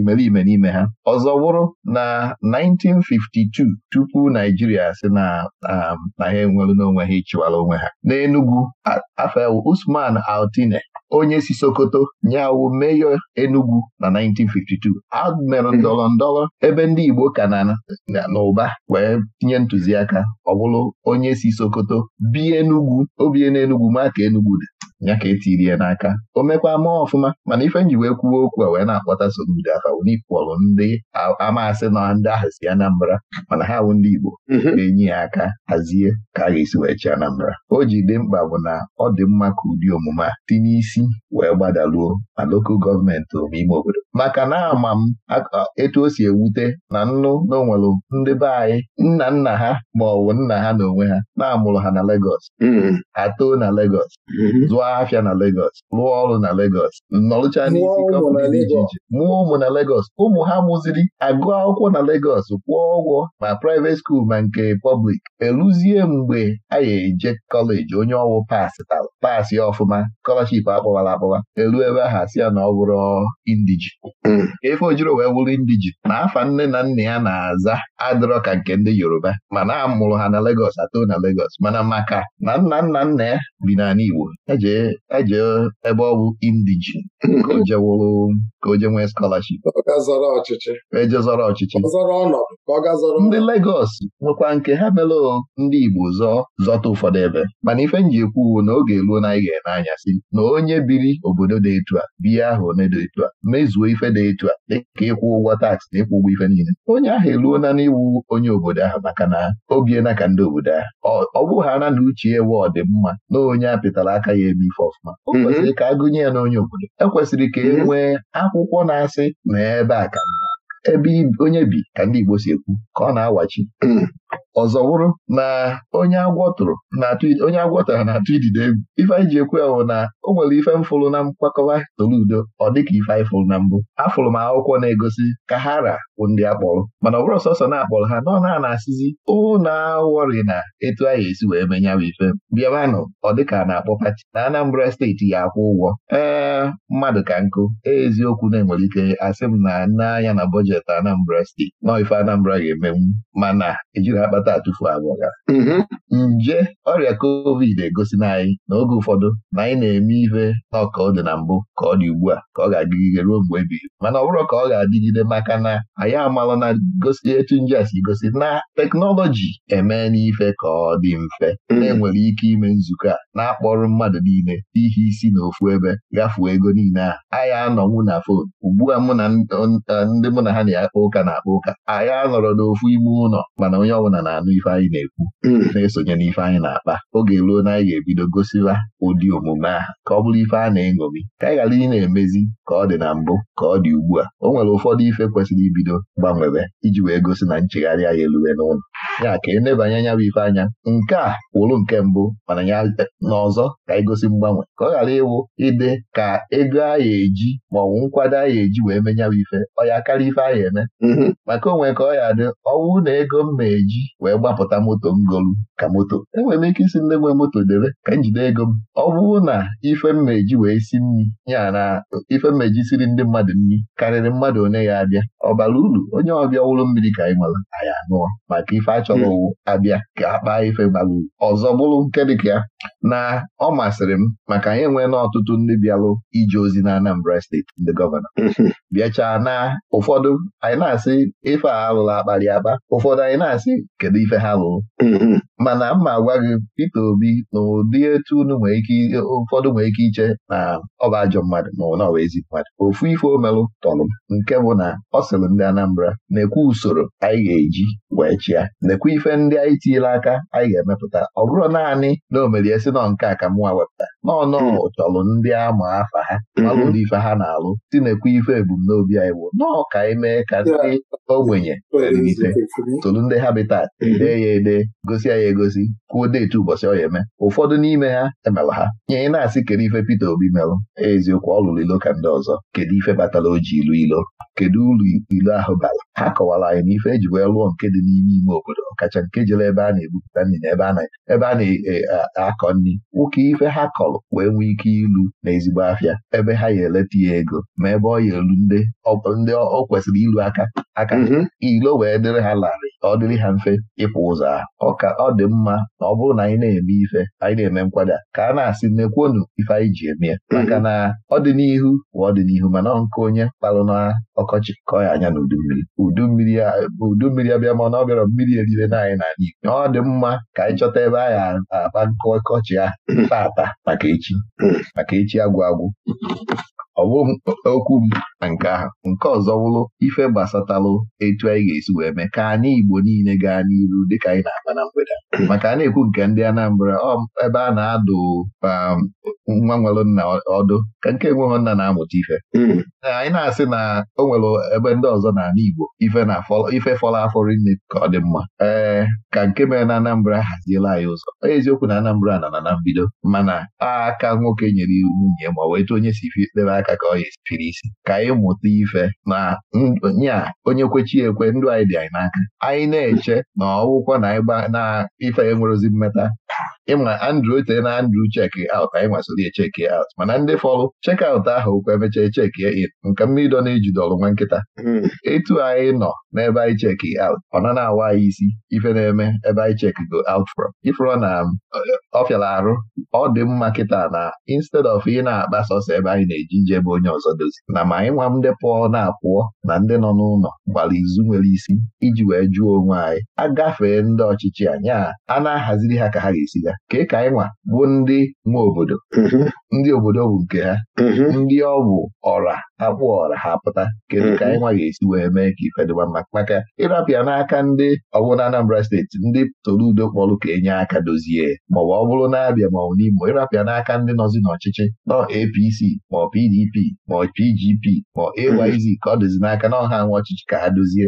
imerime n'ime ha ọzọ wụrụ na 1952 tupu Naijiria si na na ha enwere ha ịchịwara onwe ha n'Enugu afọ Usman Altine onye si Sokoto nye awụ meyọ Enugu na 1952 a mere ndọrọ ndọrọ ebe ndị Igbo ka na ụba wee tinye ntụziaka ọ bụrụ onye si Sokoto bi Enugu obie enugu ma ka Enugu dị ya ka e ya n'aka o mekwa ọfụma mana ife nji wee kwuwe okwu a wee na-akpọta so mbido afa wụnikpọrụ ndị amasị na ndị ahụ si Anambra mana ha wụ ndị Igbo na-enye mhm. ya aka hazie ka a ga-esi wee chi Anambra o ji dị mkpa bụ na ọ dị mma ka ụdị omume a si n'isi wee gbadaluo na lokal gọọmenti ime obodo maka na ama m etu o si ewute na nnu na onwere ndị be anyị nna nna ha ma ọ bụ nna ha na onwe ha na-amụrụ ha na Legọs mhm. atoo na Legọs mhm. zụọ lụọ na Legos lụọ ọrụ na Legos nọrụcha n'isi kọmpụni dị iche iche mụọ ụmụ na Legos ụmụ ha mụziri Agụ akwụkwọ na Legos kwụọ ụgwọ ma private skuul ma nke pọblik eruzie mgbe a ga eje kọleji onye ọwụ pasị ọfụma kọlọship akpọwara akpọwa elu ebe aha si ya na ọ bụrụ indiji hmm. efe ojiro wee wụrụ indiji na afa nne na nna ya na-aza adịrọ ka nke ndị Yoruba mana a mụrụ ha na Legos atọ na Legos mana maka na nna nna nna ya bi n'ala Igbo eje ejee e ebe ọ bụ indijin ka o je nwee skọlaship ejezọrọ ọchịchị e ndị Legọs nwekwa nke ha mere ndị Igbo zọ zọta ụfọdụ ebe mana ife nji ekwu na oge eluo na anyị ga-ene anya si na onye biri obodo dị etu a biya ahụ one dị etu a mezuo ife dị etu a dịka ịkwụ ụgwọ taksị na ịkwụ ụgwọ ife niile onye ahụ eluo na n'iwu onye obodo ahụ maka na obie na ka ndị obodo ahụ ọ bụghara na uche ewe ọdịmma na onye apịtara aka ya ebi ife ọfụma o mhm. kwesịrị ka a gụnye ya n'onye obodo ekwesịrị ka e mhm. nwee akwụkwọ na-asị n'ebe ebe a ka ebe onye bi ka ndị Igbo si ekwu ka ọ na-awachi mhm. ọzọ bụrụ na onye agwọ tụrụ na onye agwọ na-atụ idide egwu ife anyị ji ekwe na o nwere ife mfụrụ na mkpakọba Toludo ọ dịka ife anyị fụrụ na mbụ afụrụ m akwụkwọ na-egosi ka ha ra bụ ndị akpọrọ mana ọ bụrụ sọsọ na-akpọrọ ha nọ na na-asịzi ụna awọrị na etu anyị esi wee menya bụ ife bịabanụ ọ dịka na-akpọ pati na Anambra steeti ya akwụ ụgwọ ee mmadụ ka nkụ eziokwu na-enwere ike asị m na nne anya na bọjetị Anambra steeti nọọ ife Anambra ga-emenwu mana ejiri akpata nwata atụfu abụọ mm-hmm. nje ọrịa covid egosi na anyị na oge ụfọdụ na anyị na-eme ihe na ọka ọ dị na mbụ ka ọ dị ugbu a ka ọ ga-adịgide ruo mgbe ebighị mana ọ bụrụ ka ọ ga-adịgide maka na anyị amalụ na gosi etu nje a si gosi na teknọlọji eme n'ife ka ọ dị mfe mm-hmm. na-enwere ike ime nzukọ a na akpọrọ mmadụ niile ihe isi na ofu ebe gafuo ego niile ahụ anyị anọnwu na fon ugbu a mụ na ndị mụ na ha na-akpa ụka na-akpa ụka anyị anọrọ n'ofu ime ụlọ mana onye ọbụla na na-anụ ife anyị na-ekwu hmm. na-esonye n'ife anyị na-akpa oge ruo na anyị ga-ebido gosiwa ụdị omume a ka ọ bụrụ ife a na-eṅomi ka anyị ghara ị na-emezi ka ọ dị na mbụ ka ọ dị ugbu a o nwere ụfọdụ ife kwesịrị ibido gbanwere iji wee gosi na nchegharị anyị eluwe n'ụlọ ya ka enebanye anya bụ ife anya nke a wụrụ nke mbụ mana ya n'ọzọ ka anyị gosi mgbanwe ka ọ ghara ịwụ ide ka ego anyị eji ma ọ bụ nkwado anyị eji wee menye bụ ife ọ ya karịa ife anyị eme mm-hmm. maka onwe ka ọ ya adị ọnwụ na ego m eji wee gbapụta moto ngolu ka moto enwere m ike isi ndị nwe moto debe ka m jide ego m ọ bụrụ na ife mmeji wee si nri ya na ife mmeji siri ndị mmadụ nri karịrị mmadụ one ya abịa ọ bara uru onye ọbịa wụrụ mmiri ka anyị nwere anyị anụọ maka ife achọrọ owu hmm. abịa ka a ife bara uru ọzọ bụrụ nke dịka ya na ọ masịrị m maka anyị nwe na ọtụtụ ndị bịalụ ije ozi na Anambra steeti ndị gọvanọ hmm. bịachaa na ụfọdụ anyị na-asị ife a alụla akparị akpa ụfọdụ anyị na-asị kedu ife ha lụrụ mm-hmm. mana mma agwa gị Peter Obi na ụdị etu unu nwee ike ụfọdụ nwee ike iche na ọba ajọ mmadụ ma ọ bụ mmadụ ofu ife omelụ tọlụ nke bụ na ọ sịrị ndị Anambra na-ekwe usoro anyị ga-eji wee chịa ekwe ife ndị anyị tinyere aka anyị ga-emepụta ọ bụrụ naanị na omerie si nọ nke a ka mụnwa wepụta n'ọnọ chọlụ mm-hmm. ndị ama afa ha malụ mm-hmm. ife ha na-alụ si na-ekwe ife ebumnobi anyị bụ nọọ ka anyị mee ka ndị ogbenye tolụ ndị habitat dee ya ede gosi ya egosi kwuo deetu ụbọchị ọ eme ụfọdụ n'ime ha emela ha nye ị na-asị kedu ife Peter Obi merụ eziokwu ọ lụrụ ilo ka ndị ọzọ kedu ife batara o ji ilu ilo kedu ụlọ ilu ahụ bara ha kọwara anyị na ife eji wee lụọ nke dị n'ime ime obodo ọkacha nke jere ebe a na-ebupụta nri na ebe a na-akọ e, nri nwoke ife ha kọrọ wee nwee ike ilu na ezigbo afịa ebe ha ya eleta ya ego ma ebe ọ ya elu ndị ọ kwesịrị ilu aka aka mm-hmm. ilo wee dịrị ha larịị ọ dịrị ha mfe ịkwụ ụzọ Ọ ka ọ dị mma na ọ bụrụ na anyị na-eme ife anyị na-eme nkwada ka a na-asị nnekwuonu ife anyị ji eme ya mm-hmm. maka na ọdịnihu bụ ọdịnihu mana nke onye kpalụ na ọkọchị kọọ ya anya na udummiri mmiri. abịa mana ọ bịara mmiri erire naanị n'ala Igbo ọ dị mma ka anyị chọta ebe a ya nkọ ọkọchị ya tata hmm. maka echi hmm. maka echi agwụ agwụ ọ okwu m na nke ahụ nke ọzọ wụrụ, ife gbasatalụ etu anyị ga-esi wee mee ka anyị Igbo niile gaa n'iru dịka anyị na-akpa na mgbede maka a na-ekwu nke ndị Anambra ebe a na-adụ um, nwa nwere nna ọdụ ka nke nweghị nna na-amụta ife hmm. anyị na-asị na o nwere ebe ndị ọzọ na n'ala Igbo ife fọlọ afọ rinne ka ọ dị mma ee ka nke mere na Anambra haziela anyị ụzọ eziokwu na Anambra nọ na na mbido mana aka nwoke nyere iwu nwunye ma wee tụ onye si ife debe aka aka ka ọ yi isi ka anyị mụta ife na nya onye kwechi ekwe ndụ anyị dị anyị n'aka anyị na-eche na ọwụkwọ na ife enwerozi mmeta ịma Andrew tee na Andrew check out anyị masịrị ya check out mana ndị fọrụ check out ahụ ụkwa emechaa check in nka mmirido na-ejide ọrụ nwa nkịta hmm. etu anyị nọ n'ebe anyị check out ọ na awa anyị isi ife na-eme ebe anyị check go aut frọm ifụrọ na ọ fịara arụ ọ dị mma kịta na instead of ị na-akpa sọsọ ebe anyị na-eji nje ebe onye ọzọ dozi na ma anyị nwa ndị pụọ na-apụọ na ndị nọ n'ụlọ gbara izu nwere isi iji wee jụọ onwe anyị agafee ndị ọchịchị anyị a na-ahaziri ha ka ha ga-esi ga ka ka anyị nwa bụ ndị nwe obodo mm-hmm. ndị obodo bụ nke ha mm-hmm. ndị ọgwụ ọra akpụ ọra ha pụta kedu ka anyị mm-hmm. nwa ga-esi wee mee ka ife dịba mma maka ịrapịa n'aka ndị ọbụla Anambra steeti ndị toludo kpọrọ ka enye aka dozie maọbụ ọ bụrụ na-abịa maọbụ n'Imo ịrapịa n'aka ndị nọzi n'ọchịchị nọ APC ma ọ PDP ma ọ PGP ma AYZ ka ọ dozi n'aka na ọha nwa ọchịchị ka ha dozie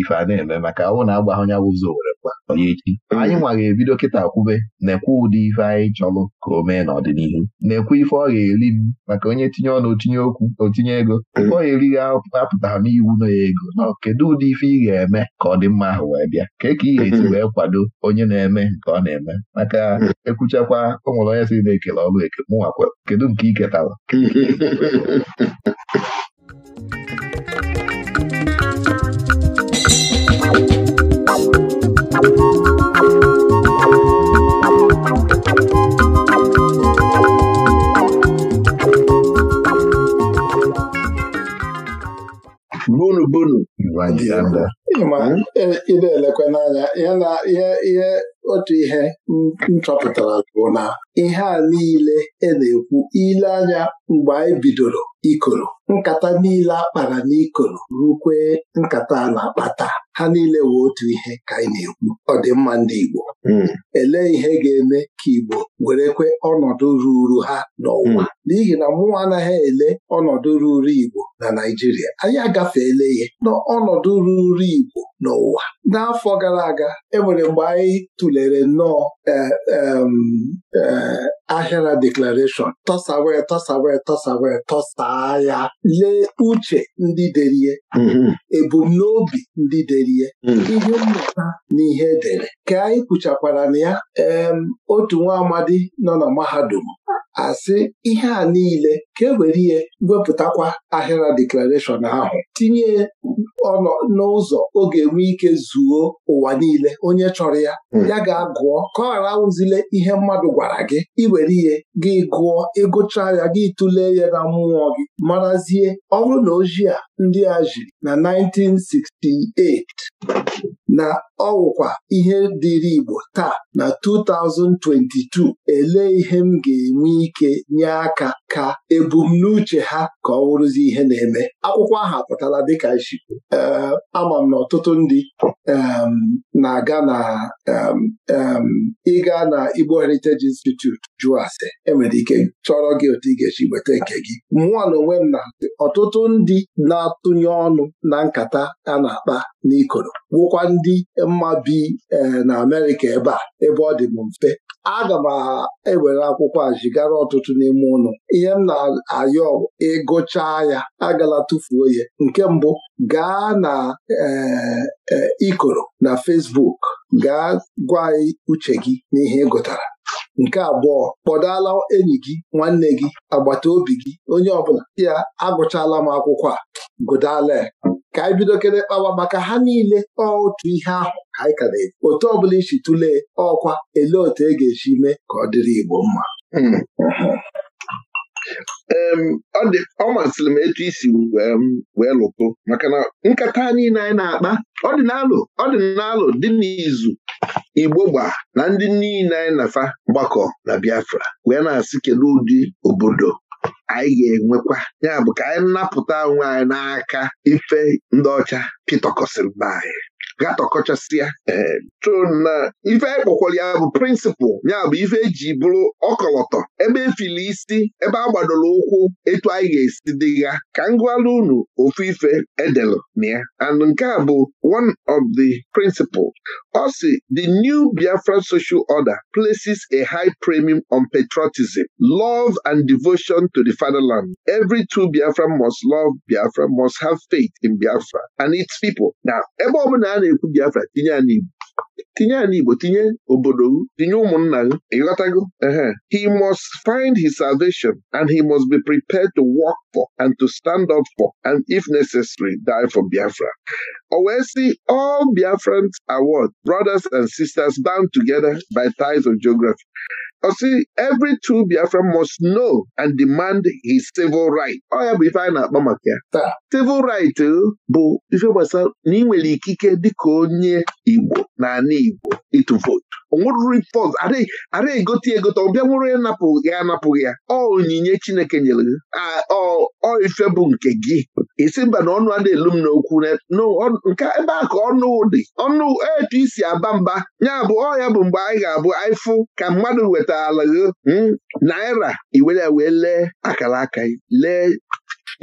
ife a na-eme maka ọ bụ na agbagha onye were onye echi anyị nwara ebido kịta kwube na-ekwe ụdị ife anyị chọrọ ka o mee n'ọdịnihu na-ekwe ife ọ ga-eri m maka onye tinye ọnụ tinye okwu otinye ego ọ ga-eri gị apụtara n'iwu na ya ego na kedu ụdị ife ị ga-eme ka ọ dị mma ahụ wee bịa ka ka ị ga-esi wee kwado onye na-eme nke ọ na-eme maka ekwuchakwa o nwere onye si na-ekele ọrụ eke mụnwakwa kedu nke ị ketara gbunu gbunu ị na-elekwa n'anya ihe ihe otu ihe m chọpụtara bụ na ihe a niile e na-ekwu ile anya mgbe anyị bidoro ikoro nkata niile akpara n'ikoro rukwee nkata a na-akpata ha niile wee otu ihe ka anyị na-ekwu ọdịmma ndị Igbo hmm. Ele ihe ga-eme ka Igbo werekwe ọnọdụ ruuru ha n'ụwa hmm. n'ihi na mụnwa anaghị ele ọnọdụ ruuru Igbo na Naijiria. anyị agafeela ihe n'ọnọdụ ruuru Igbo n'ụwa n'afọ gara aga enwere mgbe anyị tụlere nnọọ eh, eh, ahịara deklarashọn tọsawe tọsawe tọsawe tọsaa ya lee uche ndị derie mm-hmm. ebumnobi ndị derie mm. ihe mmụta na ihe edere ka anyị kwuchakwara na ya otu nwa amadi nọ na mahadum asị ihe a niile ka e were ihe wepụtakwa ahịra deklarashọn ahụ tinye ọnọ n'ụzọ ọ ga-enwe ike zuo ụwa niile onye chọrọ ya hmm. ya ga-agụọ ka ọ ghara awụzile ihe mmadụ gwara gị iwere ihe gị gụọ ịgụcha ya gị tụlee ya na mmụọ gị marazie ọrụ na ojii a ndị a jiri na 1968 na ọwụkwa ihe dịri Igbo taa na 2022 elee ihe m ga-enwe ike nye aka ka ebumnuche ha ka ọ wụrụzi ihe na-eme akwụkwọ ahụ apụtala dịka ishikwu ama m na ọtụtụ ndị na-aga na ịga na Igbo Heritage Institute jụọ ase enwere ike chọrọ gị otu ị ga-esi nweta nke gị mụọ na onwe m na ọtụtụ ndị na-atụnye ọnụ na nkata a na-akpa n'ikoro wụkwa ndị mma bi e, na Amerịka ebe a ebe ọ dị mfe aga m ewere akwụkwọ a zigara ọtụtụ n'ime ụlọ ihe m na-ayọ ịgụcha ya agala tụfuo ya nke mbụ gaa na eh, eh, ikoro na Fesbuk gaa gwa uche gị n'ihe ị gụtara nke abụọ kpọdala enyi gị nwanne gị agbata obi gị onye ọbụla ya agụchala m akwụkwọ a gụdala ka anyị e bido kele kpawa maka ha niile otu ihe ahụ anyị ka na-ekwu otu bụla isi tụlee ọkwa ele otu e ga-esi mee ka ọ dịrị Igbo mma hmm. ọ masịrị m etu isi wee lụtụ maka na nkata niile anyị na-akpa ọdịnalụ ọdịnalụ dị n'izu Igbo gba na ndị niile anyị na gbakọ mgbakọ na Biafra wee na-asị kedu ụdị obodo anyị ga-enwekwa ya bụ ka anyị napụta onwe anyị n'aka ife ndị ọcha pịtọkọsịrị na anyị gatọkọchasịa chụna eh, ife ekpokwara ya bụ prịnsịpụl ya bụ ife eji bụrụ ọkọlọtọ ebe efili isi ebe a gbadoro ụkwụ etu anyị ga-esi dị ya ka ngụalụ unu ofu ife edelụ na ya and nke a bụ one of the principle ọ si the new Biafra social order places a high premium on patriotism love and devotion to the fatherland every true Biafra must love Biafra must have faith in Biafra and its people now ebe ọ bụla a na-ekwu Biafra tinye ya n'Igbo tinye ya tinye obodo tinye ụmụnna gị ịghọtago he must find his salvation and he must be prepared to work for and to stand up for and if necessary die for Biafra o wee sị all Biafrans award, brothers and sisters bound together by ties of geography ọsị every true Biafran must know and demand his civil right ọ ya bụ ife anyị na akpọ maka ya taa civil right eh, bụ ife gbasara na ị nwere ikike dịka onye Igbo na ana Igbo ịtụ vootu onweruru pọt ara egote egote ọ bịa nwere ịnapụ ya anapụghị ya ọ onyinye Chineke nyere gị ọ ife bụ nke gị isi mba na ọnụ a na-elu m n'okwu nke ebe a ka ọnụ dị ọnụ etu aba mba ya bụ ọ ya bụ mgbe anyị ga-abụ aịfụ ka mmadụ weta pụtala gị hmm, naira iwere wee lee akara aka lee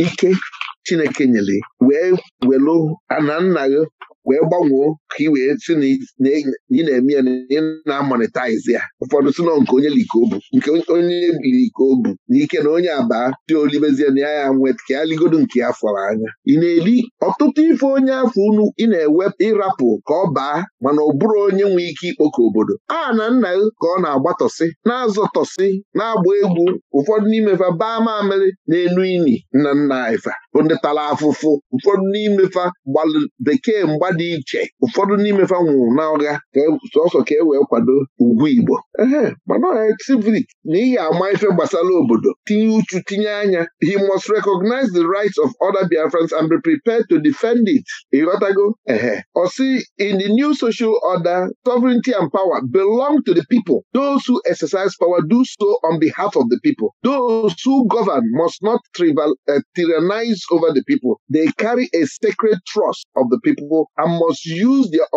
ike Chineke nyere wee welụ ana nna gị wee gbanwee ka ị wee si na ị na-eme ya na ị na-amonetaizi ya ụfọdụ si nke onye likobu nke onye biri n'ike na onye abaa dị olibezie na ya ya nweta ka ya ligodo nke ya fọrọ anya ị na-eli ọtụtụ ife onye afọ unu ị na-ewepụ ịrapụ ka ọ baa mana ọ bụrụ onye nwee ike ikpoko obodo a na nna ka ọ na-agbatọsị na-azọtọsị na-agba egwu ụfọdụ fa baa mamịrị na-enu ini nna nna ifa bụ ndị tara afụfụ ụfọdụ n'imefa gbalụ bekee mgba dị iche ụfọdụ n'imefa nwụrụ na ọga e, sọsọ ka e wee kwado ugwu Igbo ehe mana ọha civic na ihe ama ife gbasara obodo tinye uchu tinye anya he must recognize the rights of other Biafrans and be prepared to defend it ịghọtago ehe ọsị in the new social order sovereignty and power belong to the people those who exercise power do so on behalf of the people those who govern must not trivial, uh, eh, tyrannize over the people. They carry a sacred trust of the people and must use their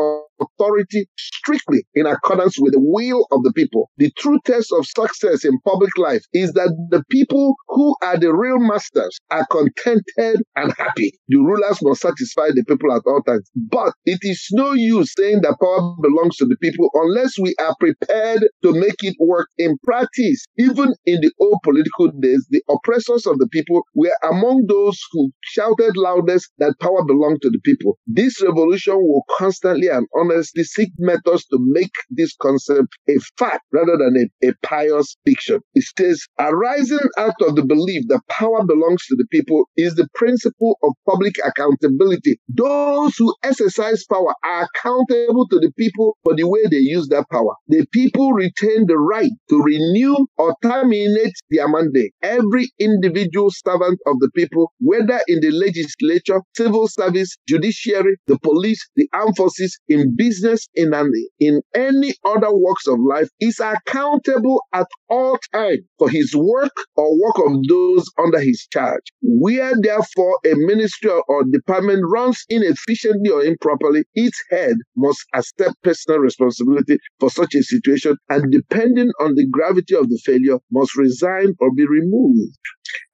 authority strictly in accordance with the will of the people. The true test of success in public life is that the people who are the real masters are contented and happy. The rulers must satisfy the people at all times. But it is no use saying that power belongs to the people unless we are prepared to make it work in practice. Even in the old political days, the oppressors of the people were among those who shouted loudest that power belonged to the people. This revolution will constantly and honestly honestly seek methods to make this concept a fact rather than a, a pious fiction. It says, arising out of the belief that power belongs to the people is the principle of public accountability. Those who exercise power are accountable to the people for the way they use that power. The people retain the right to renew or terminate their mandate. Every individual servant of the people, whether in the legislature, civil service, judiciary, the police, the armed forces, in business in, an, in any other works of life is accountable at all times for his work or work of those under his charge. Where therefore a ministry or department runs inefficiently or improperly, its head must accept personal responsibility for such a situation and depending on the gravity of the failure must resign or be removed.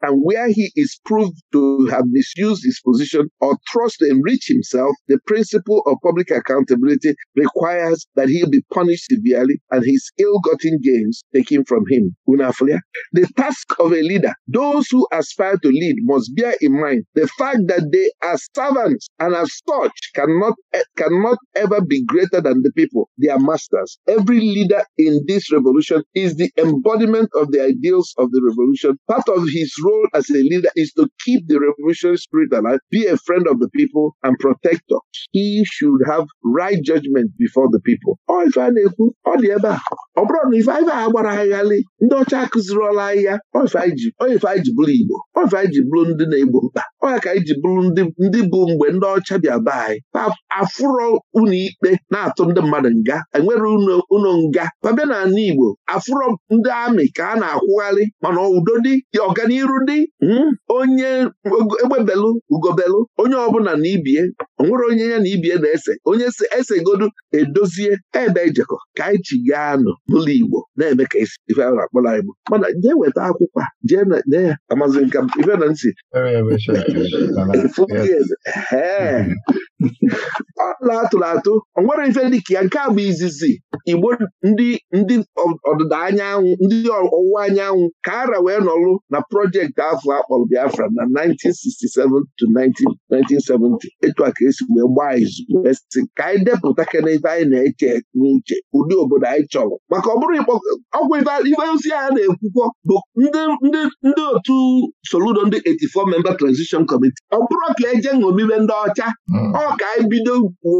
and where he is proved to have misused his position or trust to enrich himself, the principle of public accountability requires that he be punished severely and his ill-gotten gains taken from him. Unafulia. The task of a leader, those who aspire to lead must bear in mind the fact that they are servants and as such cannot, eh, cannot ever be greater than the people, their masters. Every leader in this revolution is the embodiment of the ideals of the revolution. Part of his his role as a leader is to keep the revolutionary spirit alive, be a friend of the people, and protector. He should have right judgment before the people. Ọ ife a na-ekwu ọ dị ebe a ọ bụrụ na ife anyị a gbara ndị ọcha akụziriola anyị ya ọ ife anyị ji bụrụ Igbo ọ ife anyị ji bụrụ ndị na-egbo mkpa ọ ka anyị ji bụrụ ndị bụ mgbe ndị ọcha bịa be anyị afụrọ unu ikpe na-atụ ndị mmadụ nga enwere unu nga babịa na ala Igbo afụrọ ndị amị ka a na-akwụgharị mana udo dị ọganiru dị hmm? onye egbebelụ ugobelụ onye ọbụla na ibie onwere onye ya na ibie na-ese onye si esegodu edozie ebe ejekọ ka anyị chi gaa nọ n'ụlọ Igbo na-eme ka ife a na-akpọla Igbo mana jee weta akwụkwọ jee ya amazi nka ife na ntị atụrụ atụ o nwere ife dịka ya nke bụ izizi igbo ndị ndị ọdịda anyanwụ ndị ọwụwa anyanwụ ka ara wee nọrụ na projekti afọ akpọrọ Biafra na 1967 to 1970 etu a ka esi wee gbaa izu ka anyị depụta kene ife anyị na-eche n'uche ụdị obodo anyị chọrọ maka ọ bụrụ ọgwụ ife ozi a na-ekwukwọ bụ ndị otu Soludo ndị 84 memba transition Election Committee ọ bụrụ ka eje ṅobibe ndị ọcha hmm. ọ ka ebido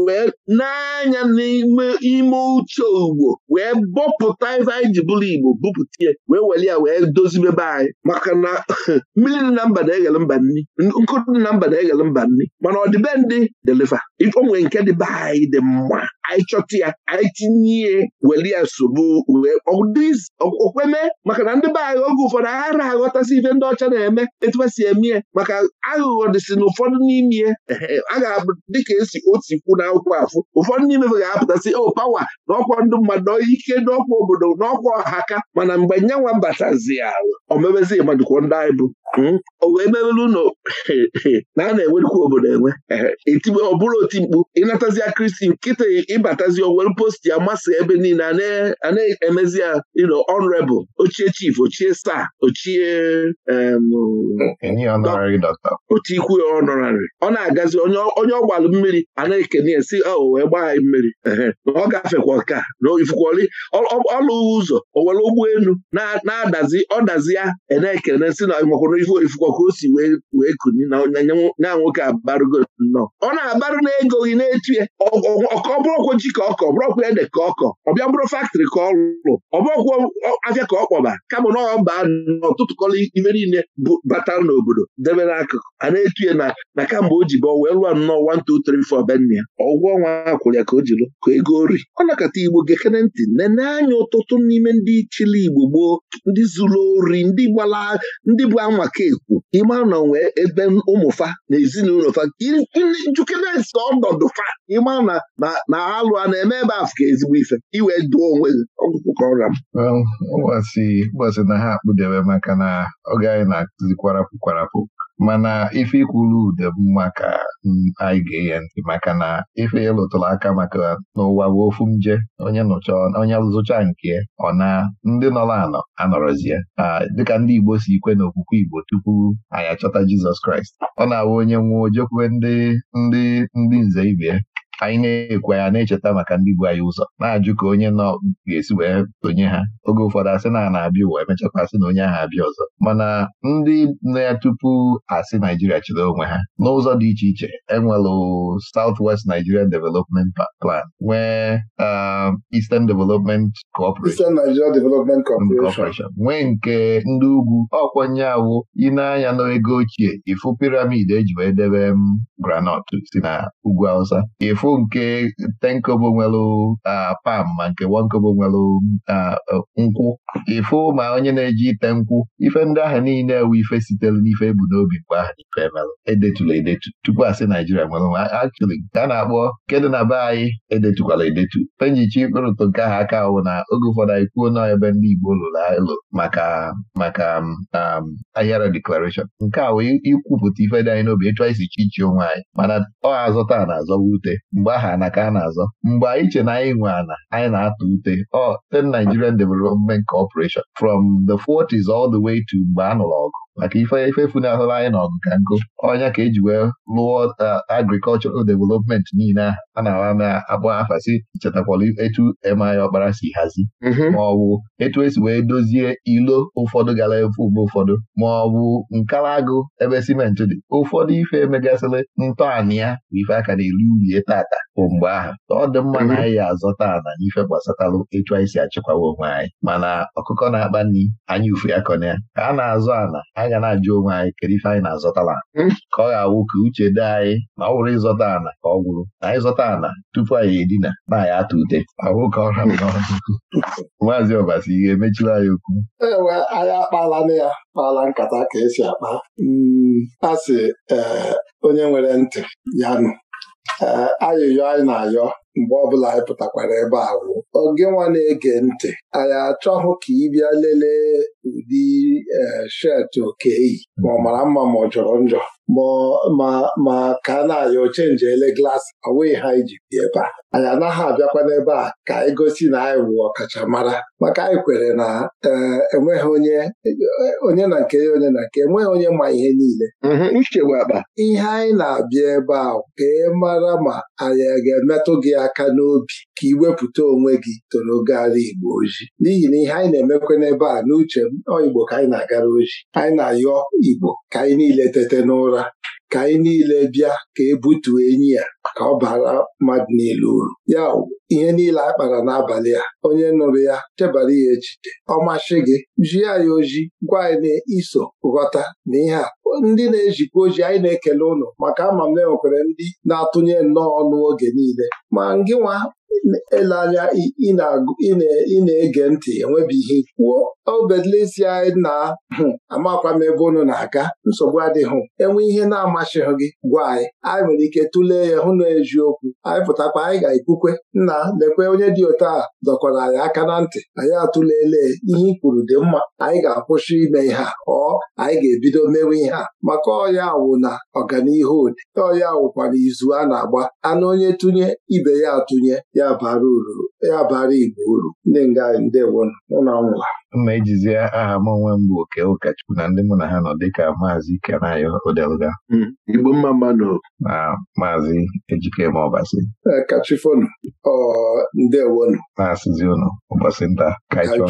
wee n'anya n'ime ime uche ugbo wee bọpụta ife anyị ji bụrụ Igbo bupụta ya wee weli ya wee dozibe anyị maka na mmiri dị na mba na-eghele mba nri nkụrụ dị na mba na-eghele mba nni, mana ndị, deliva onwe nke dịbe anyị dị mma anyị chọta ya anyị tinye ihe weli ya nsogbu okweme maka na ndị be anyị oge ụfọdụ aghara aghọtasị ife ndị ọcha na-eme etu eme ya maka aghụghọ dịsị na ụfọdụ n'ime ya a ga-abụ dịka esi otu ikwu na akwụkwọ afụ ụfọdụ n'ime ga-apụtasị o oh, pawa na ọkwa ndị mmadụ ike n'ọkwa obodo ọkwa ọha aka mana mgbe nyanwa batazi ya omebezi madụkwo ndị anyị bụ Hmm? o wee na a na-enwerukwa obodo enwe etibe ọ bụrụ oti mkpu ịnatazia kristi nkịta ịbatazi owere post ya masa ebe niile a na-emezi ya ino honorable ochie chief ochie star ochie ikwu ya honorary ọ na-agazi onye ọgbalụ mmiri a na-ekene ya si ahụ oh, wee gbaa anyị mmiri ọ gafekwa ọka na ifukwali ọlụ ụzọ owere ụgbọelu na-adazi ọ dazi ya e na-ekene si na ife oifu ka o si wee kuni na nwoke abarụgo nnọọ ọ na-abarụ na ego gị na-etuye ọkọ bụrụkwa ji ka ọkọ bụrụkwa ede ka ọkọ ọbịa bụrụ faktrị ka ọ lụ ọbụrụkwa afịa ka ọ kpọba kama na ọba n'ọtụtụkọrọ ibe niile bụ n'obodo debe n'akụkụ a na-etuye na na kamgbe o ji bọ wee lụọ nnọọ 1234 benna ya ọgwụgwọ ọnwa akwụrụ ya ka o jiri ka ego ori ọ nakọta igbo gekere ntị nene anya ụtụtụ n'ime ndị chili igbo gboo ndị zuru ori ndị gbala ndị bụ anwa aka ekwu ịma n'onwe nwee ebe ụmụfa na ezinụlọ fa jukedes ọnọdụfa ịma na na alụ a na-eme ebe afọ ka ezigbo ife iwe duo onwe gị ọgwụkwụkọra gbasị na ha akpụdebe maka na oge anyị na-akụzi kwarapụ mana ife ikwuru ude mma ka mm, anyị ga enye ntị maka na ife ịlụtụrụ aka maka n'ụwa bụ ofu nje onye nụcha onye zụcha nke ọ na ndị nọrọ anọ anọrọzie dịka ndị Igbo si ikwe n'okwukwe Igbo tupu anyị achọta Jizọs Kraịst ọ na-awụ onye nwụọ ojekwube ndị ndị ndị nze ibe anyị na ekwe anya na-echeta maka ndị bu anyị ụzọ na-ajụ ka onye nọ ga-esi wee tonye ha oge ụfọdụ asị na na-abịa ụwa emechakwa asị na onye ahụ abịa ọzọ mana ndị na ya tupu asị Naijiria chịrị onwe ha n'ụzọ dị iche iche enwelụ West nigeria Development Plan nwee um, Eastern Development mm, Corporation nwee nke ndị ugwu ọkwanye awụ ịneanya n'ego ochie ifu piramid eji wee debe m um, granọt si na ugwu Hausa Ifu. bụ nke 10 kobo nwelụ pam ma nke 1 kobo nwelụ nkwụ ịfụ ma onye na-eji ite nkwụ ife ndị ahụ niile ewu ife sitere n'ife ebu n'obi mgbe ahụ na ife emelụ edetula edetu tupu asị Naijiria nwere nwa actually nke a na-akpọ kedụ na be anyị edetukwala edetu penjichi ịkpụrụtụ nke ahụ aka ahụ na oge ụfọdụ anyị kwuo na ebe ndị Igbo lụrụ alụ maka maka um, ahịara deklarashọn nke a wee ikwupụta ife dị anyị n'obi etu isi chi chi onwe anyị mana ọ azọta na-azọwa ute mgbe aha ana ka a na-azọ mgbe anyị che na anyị nwe ana anyị na-atụ ute ọ the Nigerian Development Corporation from the 40s all the way to mgbe a nụrụ ọgụ maka ifeanyị funahụrụ anyị n'ọgụ ka nkụ ọnya ka eji wee lụọ agrikọlchọral developmenti niile a na-awa ma akpọ afasi chetakwala etu emaya ọkpara si hazi mhm. ma ọ bụ etu esi wee dozie ilo ụfọdụ gara efu mgbe ụfọdụ ma ọ bụ ebe simenti dị ụfọdụ ife emegasịrị ntọala ya bụ ife aka na eru urie tata bụ mgbe ahụ ọ dị mma na mhm. anyị azọta na ife gbasatalụ etu anyị si achịkwawa onwe anyị mana ọkụkọ na-akpa nri anyị ufe ya ka a na-azọ ana anya na-ajụ onwe anyị kedu ife anyị na-azọtala hmm? ka ọ ga-awụ ka uche dị anyị ma ọ bụrụ ịzọta ana ka ọ gwụrụ na anyị zọta ana tupu anyị edina na anyị atụ ute ahụ ka ọra maazị ọbasi ihe emechiri anyị okwu ewe anyị akpala na ya kpala nkata ka esi akpa hmm, a sị onye nwere ntị ya nụ ayịyọ anyị na-ayọ mgbe ọbụla anyị pụtakwara ebe a wụ oge nwa na-ege ntị anyị achọghị ka ị bịa lelee ụdị e, shet oke yi ma ọ mara mma ma ọ jọrọ njọ ma ka a na-ayọ chenji ele glaasị awee ha iji bi ebe a anyị anaghị abịakwa n'ebe a ka anyị gosi na anyị wụ ọkachamara maka anyị kwere na e, enweghị onye onye na nke onye na nke enweghị onye ma ihe niile mhm, ihe anyị na-abịa ebe a ka ị mara ma anyị ga-emetụ gị aka n'obi ka ị wepụta onwe gị toro gara Igbo oji n'ihi na ihe anyị na-emekwa n'ebe a n'uche m ọ Igbo ka anyị na-agara oji anyị na-ayọ Igbo ka anyị niile tete n'ụra ka anyị niile bịa ka ebutuo enyi ya ka ọ bara mmadụ niile uru ya ihe niile a kpara n'abalị a onye nụrụ ya chebara ya ejide ọ gị jie ya oji gwa anyị na-iso ghọta na ihe a ndị na-ejikwa oji anyị na-ekele ụnụ maka ama m enwekwara ndị na-atụnye nnọọ ọnụ oge niile ma ngịnwa ele anya ị na-ege ntị enwebeghị kwuo obedlesi anyị na hmm, amakwa m ebe unu na-aga nsogbu adịghị enwe ihe na-amasịghị gị gwa anyị anyị nwere ike tụlee ya hụ na eziokwu anyị pụtakwa anyị ga-ekwukwe nna lekwe onye dị otu a dọkọrọ anyị aka na ntị anyị atụlele ihe ikwuru kwuru dị mma anyị ga-akwụsị ime ihe a ọ anyị ga-ebido mewe ihe a maka ọya awụ na ọganihu ode ọya wụkwa na izu a na-agba anụ onye tụnye ibe ya atụnye ya bara uru ya bara Igbo uru ndị nga ndewo ụlọ nwa mma ejizie aha m onwe m bụ oke ụkọchukwu na ndị mụ na ha nọ dịka maazị Kenayo Odelga hmm, Igbo mma mmanụ na maazị Ejikeme Ọbasi e, kachifonu ọ ndewonu na-asịzi ụnụ ụbọchị nta kaichọ